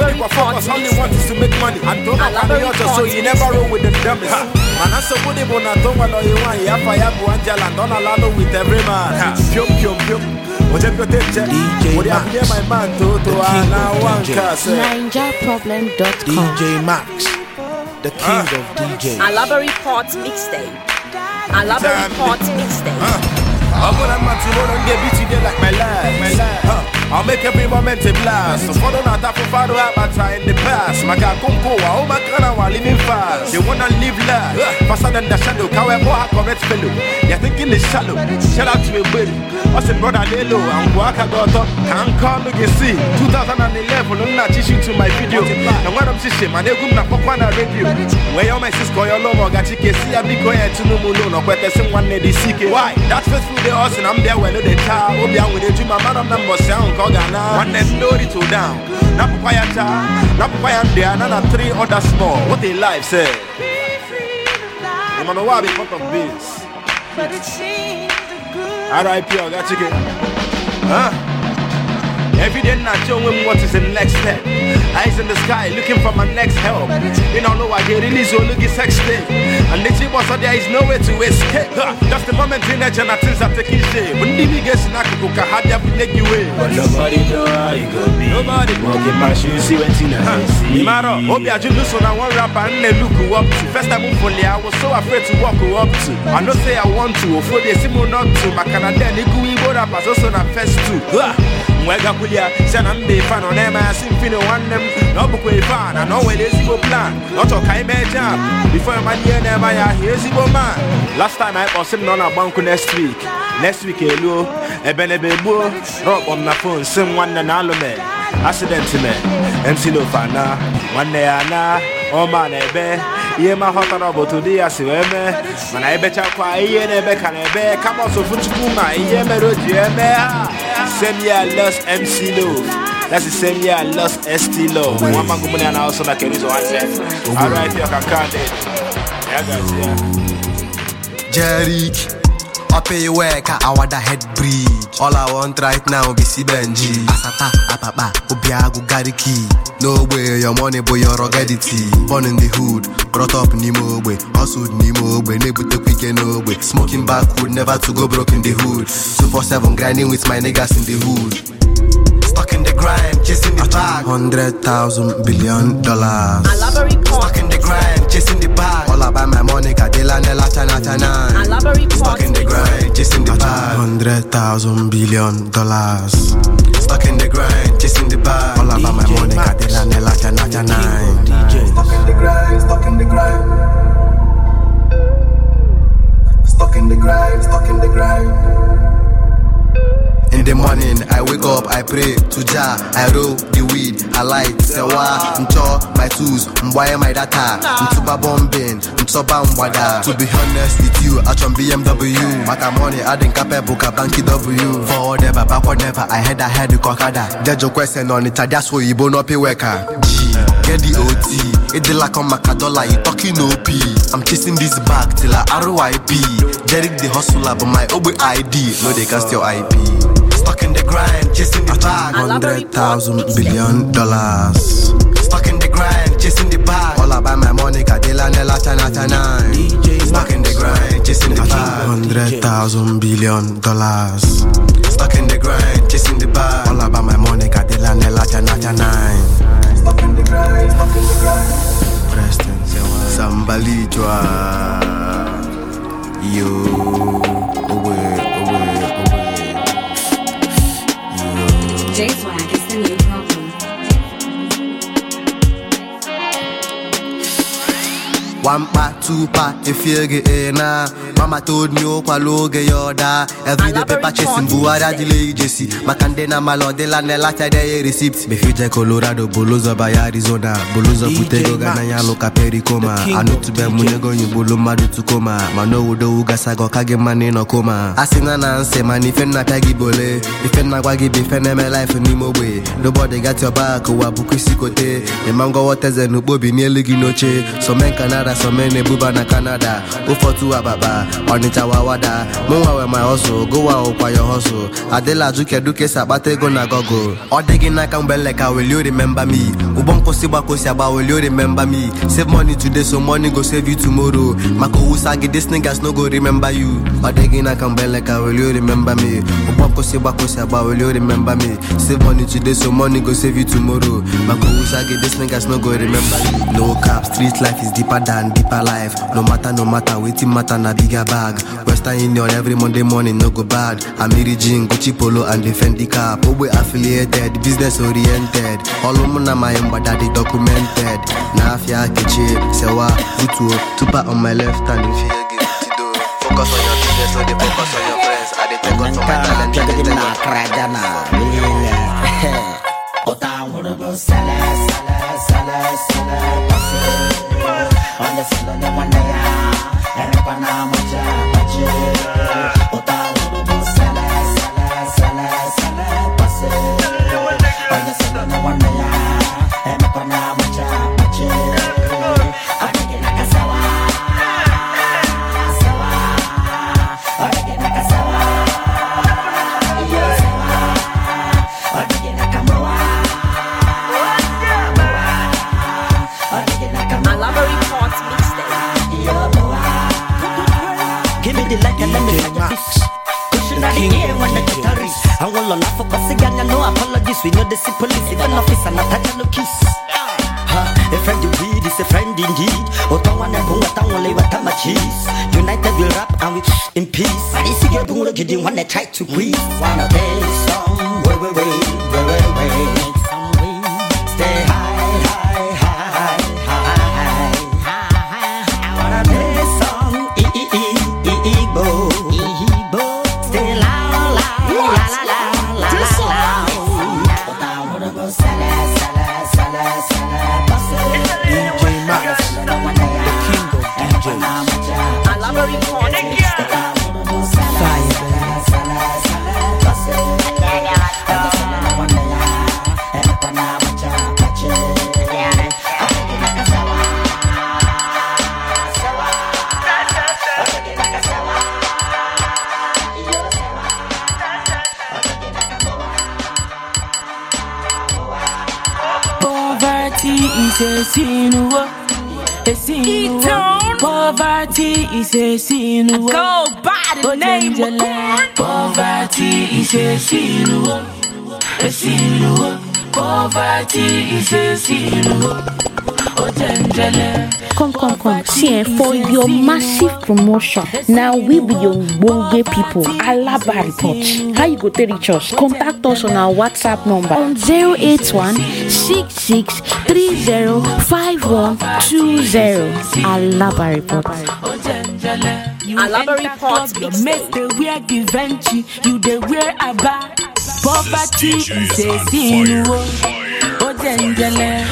S4: odikwa only
S15: want is to make money and to nakwa so yi never roll with the dummies mana nsogbu dị bụ na to nwere onye nwaanyị afa ya bụ anjala, and na with man piom piom piom Oje ala
S3: NigerProblem.com
S1: DJ Max, the king uh. of DJs.
S2: Port Mixtape. I love every part day. Uh, I
S15: I'll make every moment a blast. Fodo na tafu fado abata in the past. Maka kumko ụwa oma kana wa living fast. They wanna live life faster than the shadow. Kawe moha correct fellow. You're thinking it's shallow. Shout out to a buddy. I said brother Lelo and Waka got up. Can't call you see. 2011 unna chishu to my video. na when I'm chishu man na pokwa na radio. Where your my call your love gachi kesi abiko ya tunu mulo no kwete sim nwanne ne disike. Why? ndị ọ sị na m bịa welu dị taa obi a nwere eju ma mara m na mbọsị ahụ nke ọ ga-ana nwanne m nori to down papa ya taa papa ya ndụ a na na three other small what a life sir ịmana ụwa bụ part of RIP Every day I show him what is the next step. Eyes in the sky looking for my next help. You don't know I get really this look sex And the chip was there is nowhere to escape. Just the moment in that and things are taking shape. When the biggest snack cook I had But nobody know how it go be. Nobody. Walking my shoes, see see. Imaro, Obi Ajuluso na one rapper and they look up to. First I was so afraid to walk up I know say I want to, they see me not to. rappers na first two. wee gakwulia si na mba ife nọ na-eme ya si mfini nwanne m na ọ bụkwa ife a na na o nwere ezigbo plan na ọ chọrọ ka anyị mee jam bifo ịmanye ihe na-eme anyị ahịa ezigbo man last time anyị kpọsị m na ọ na-agba nkụ next week next week eluo eh, ebenebe gbuo rọkpọ m na fon si m nwanne na alụme accident me mc lofana nwanne ya na ọma oh, na ebe eh, ihe ma ghọtara na bụ otu ya si wee mee mana ebechakwa ihe na-ebe ka na-ebe kama ọsọfụ chukwu ma ihe mere o ji eme ha same year lost MC Love That's the same year I lost ST Love. One man company and I also like it
S6: is one year.
S3: All right, you can count it.
S6: Yeah, guys, yeah. Jerick. Ope iweka, awada head bridge. All I want right now be si Benji Asata, apapa, obiagu gariki No way, your money boy, your ruggedity Born in the hood, brought up n'ime ogbe Hustled n'ime ogbe, na-ebutekwa ike n'ogbe Smoking backwood, never to go broke in the hood 247 grinding with my niggas in the hood Stuck in the grind, chasing the bag 100,000 billion dollars Stuck in the grind, chasing the bag All about my money, Kadela, Nela, Chana, Chana Stuck in the grind grind, chasing the bag. Hundred thousand billion dollars. Stuck in the grind, chasing the bag. All about my money, Jana, Jana. Stuck In the morning, I wake up, I pray to Jah. I roll the weed, I light, sewa, ncho my tools, mwaye my data, mtuba bombing, mtoba mwada. To be honest with you, I chum BMW, mata money, I didn't cap buka banki W. Forward never, backward never, I had I head the cockada. Dejo question on it, I just so you bono pay worker. Get the OT, it de la come macadola, you talking OP. I'm chasing this back till I RIP. Derek the hustler, but my OB ID, no they cast your IP. Stuck in the grind, chasing the bag. Hundred thousand billion dollars. Stuck in the grind, chasing the bag. All about my money, Cadilla, Nella, china Chana. stuck in the grind, chasing the bag. Hundred thousand billion dollars. Stuck in the grind, chasing the bag. All about my money, Cadilla, Nella, Stuck in the
S14: grind, stuck in the
S6: grind. Preston, Yo. One pack, two pack, if you get in Mama told me, oh, kwalo get your da. Every day paper chasing, buara delay Jesse. Makande na malo de la nela tade receipts. Me future Colorado, boloza by Arizona, boloza putego ya loka pericoma. Anu tube munego bolo madu tukoma. Mano udo ugasa go kage mane no koma. Asina na nse mani fen na tagi bole. Ifen na gwagi be fen eme life ni mobe. Nobody got your back, wabuku sikote. Emango wateze nubobi ni eligi noche. So men kanara Ada so many buba na Canada Ufotu ababa, Onitsha wawada Mụnwa we my hustle, gowa ụkwa your hustle Adịla azụ kedu ka esi na gogo Ọ dị gị n'aka mgbe leka will you remember me Ụgbọ nkwụsị gbakosi agba will you remember me Save money today so money go save you tomorrow Maka owusa gị these niggas no go remember you Ọ dị gị n'aka mgbe leka will you remember me Ụgbọ nkwụsị gbakosi agba will you remember me Save money today so money go save you tomorrow Maka owusa gị these niggas no go remember you No cap, street life is deeper than and deeper life no matter no matter wetin matter na bigger bag western union every monday morning no go bad amiri jean gucci polo and the fendi cap ogbe oh, affiliated business oriented ọlụmụ na my mgbada dị documented n'afịa kechi sewa butuo tupa on my left hand if
S16: focus on your business, no focus on your friends. I dey take on to my talent, I dey take on to my Ghana.
S3: Ota nwere bụ sala sala sala sala. Wanda sila na manaya Erapa na maja
S16: maji Uta ulu bu sele sele sele yeah, when the terrorists. I will not for passing
S4: and no apologies. We know the see police, even officer, not touch no kiss. A friend you weed is a friend indeed. Otawana bunga tangole watama cheese. United we rap and we in peace. I see you don't look at you when they try to breathe. One of these songs.
S3: is a sin. Go by the name of poverty is a sin. A sin. Poverty is a sin. Come, come, come. See, eh, for your massive promotion, now we be your bonge people. Alaba report. How you go to reach us? Contact us on our WhatsApp number on 081 66 30 Alaba report. Alabari Port Your mate they wear Givenchy You they wear Abba Poverty is a sin Ojenjele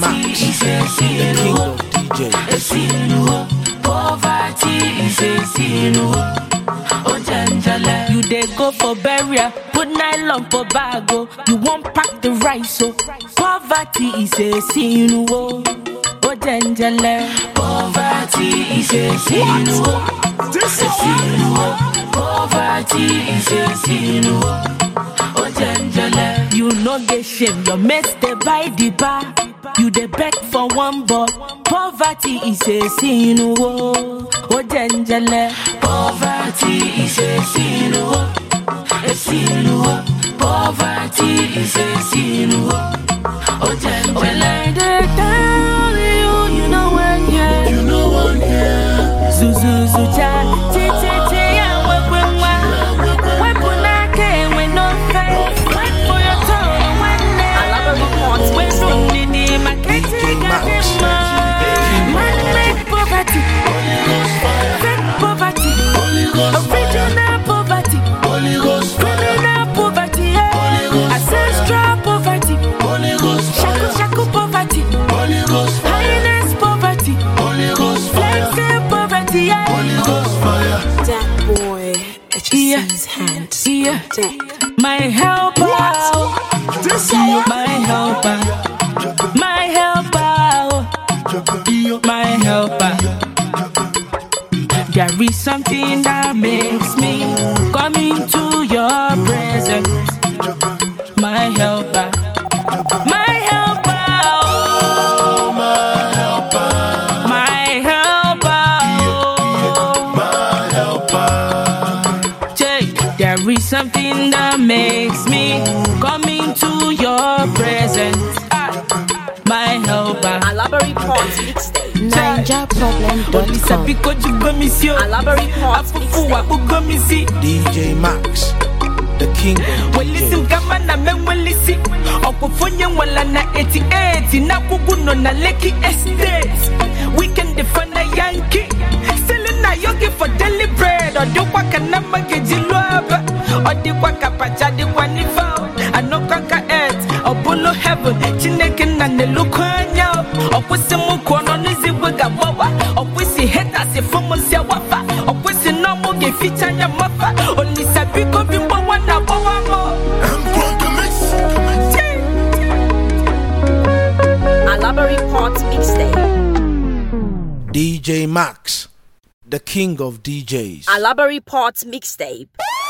S3: DJ Max The king of DJ Poverty is a sin Ojenjele You they go for burial Put nylon for bago oh. You won't pack the rice so oh. Poverty is a sin O ojenjele. Poverty is a sin. Oh. This is sin. Oh. Poverty is a sin. Ojenjele. Oh. You no get shame, your mess dey buy the bar. You dey beg for one but poverty is a sin. Ojenjele. Poverty is a sin. A sin. Poverty is a sin. O All the time. nzuzo hand. my helper, my helper, my helper, my helper. There is something that makes me come into your presence, my helper. something that makes me come into your presence. Ah, my helper. Alabari Ponds Ninja problem. Olisa Pico Jubamisio. Alabari Ponds. Apufu Apugamisi. DJ Max. The king. Welisi Gamana Mewelisi. Okufunye Walana 88. na Leki Estate. We can defend a Yankee. Selling na yogi for daily bread. Or do what ọ dịkwa ka pacha dịkwa n'ife anọkwa ka et ọ bụlụ heaven chineke nna na-elukọ anya ọkwụsị m kwuo nọ n'izigwe ga-agbawa ọkwụsị hetasị fụmụsị wafa ọkwụsị na ọmụ ga-eficha anya mafa olisa biko bi mgbawa na agbawa m
S2: Alabari Pot Mixtape
S1: DJ Max, the king of DJs.
S2: Alabari port Mixtape.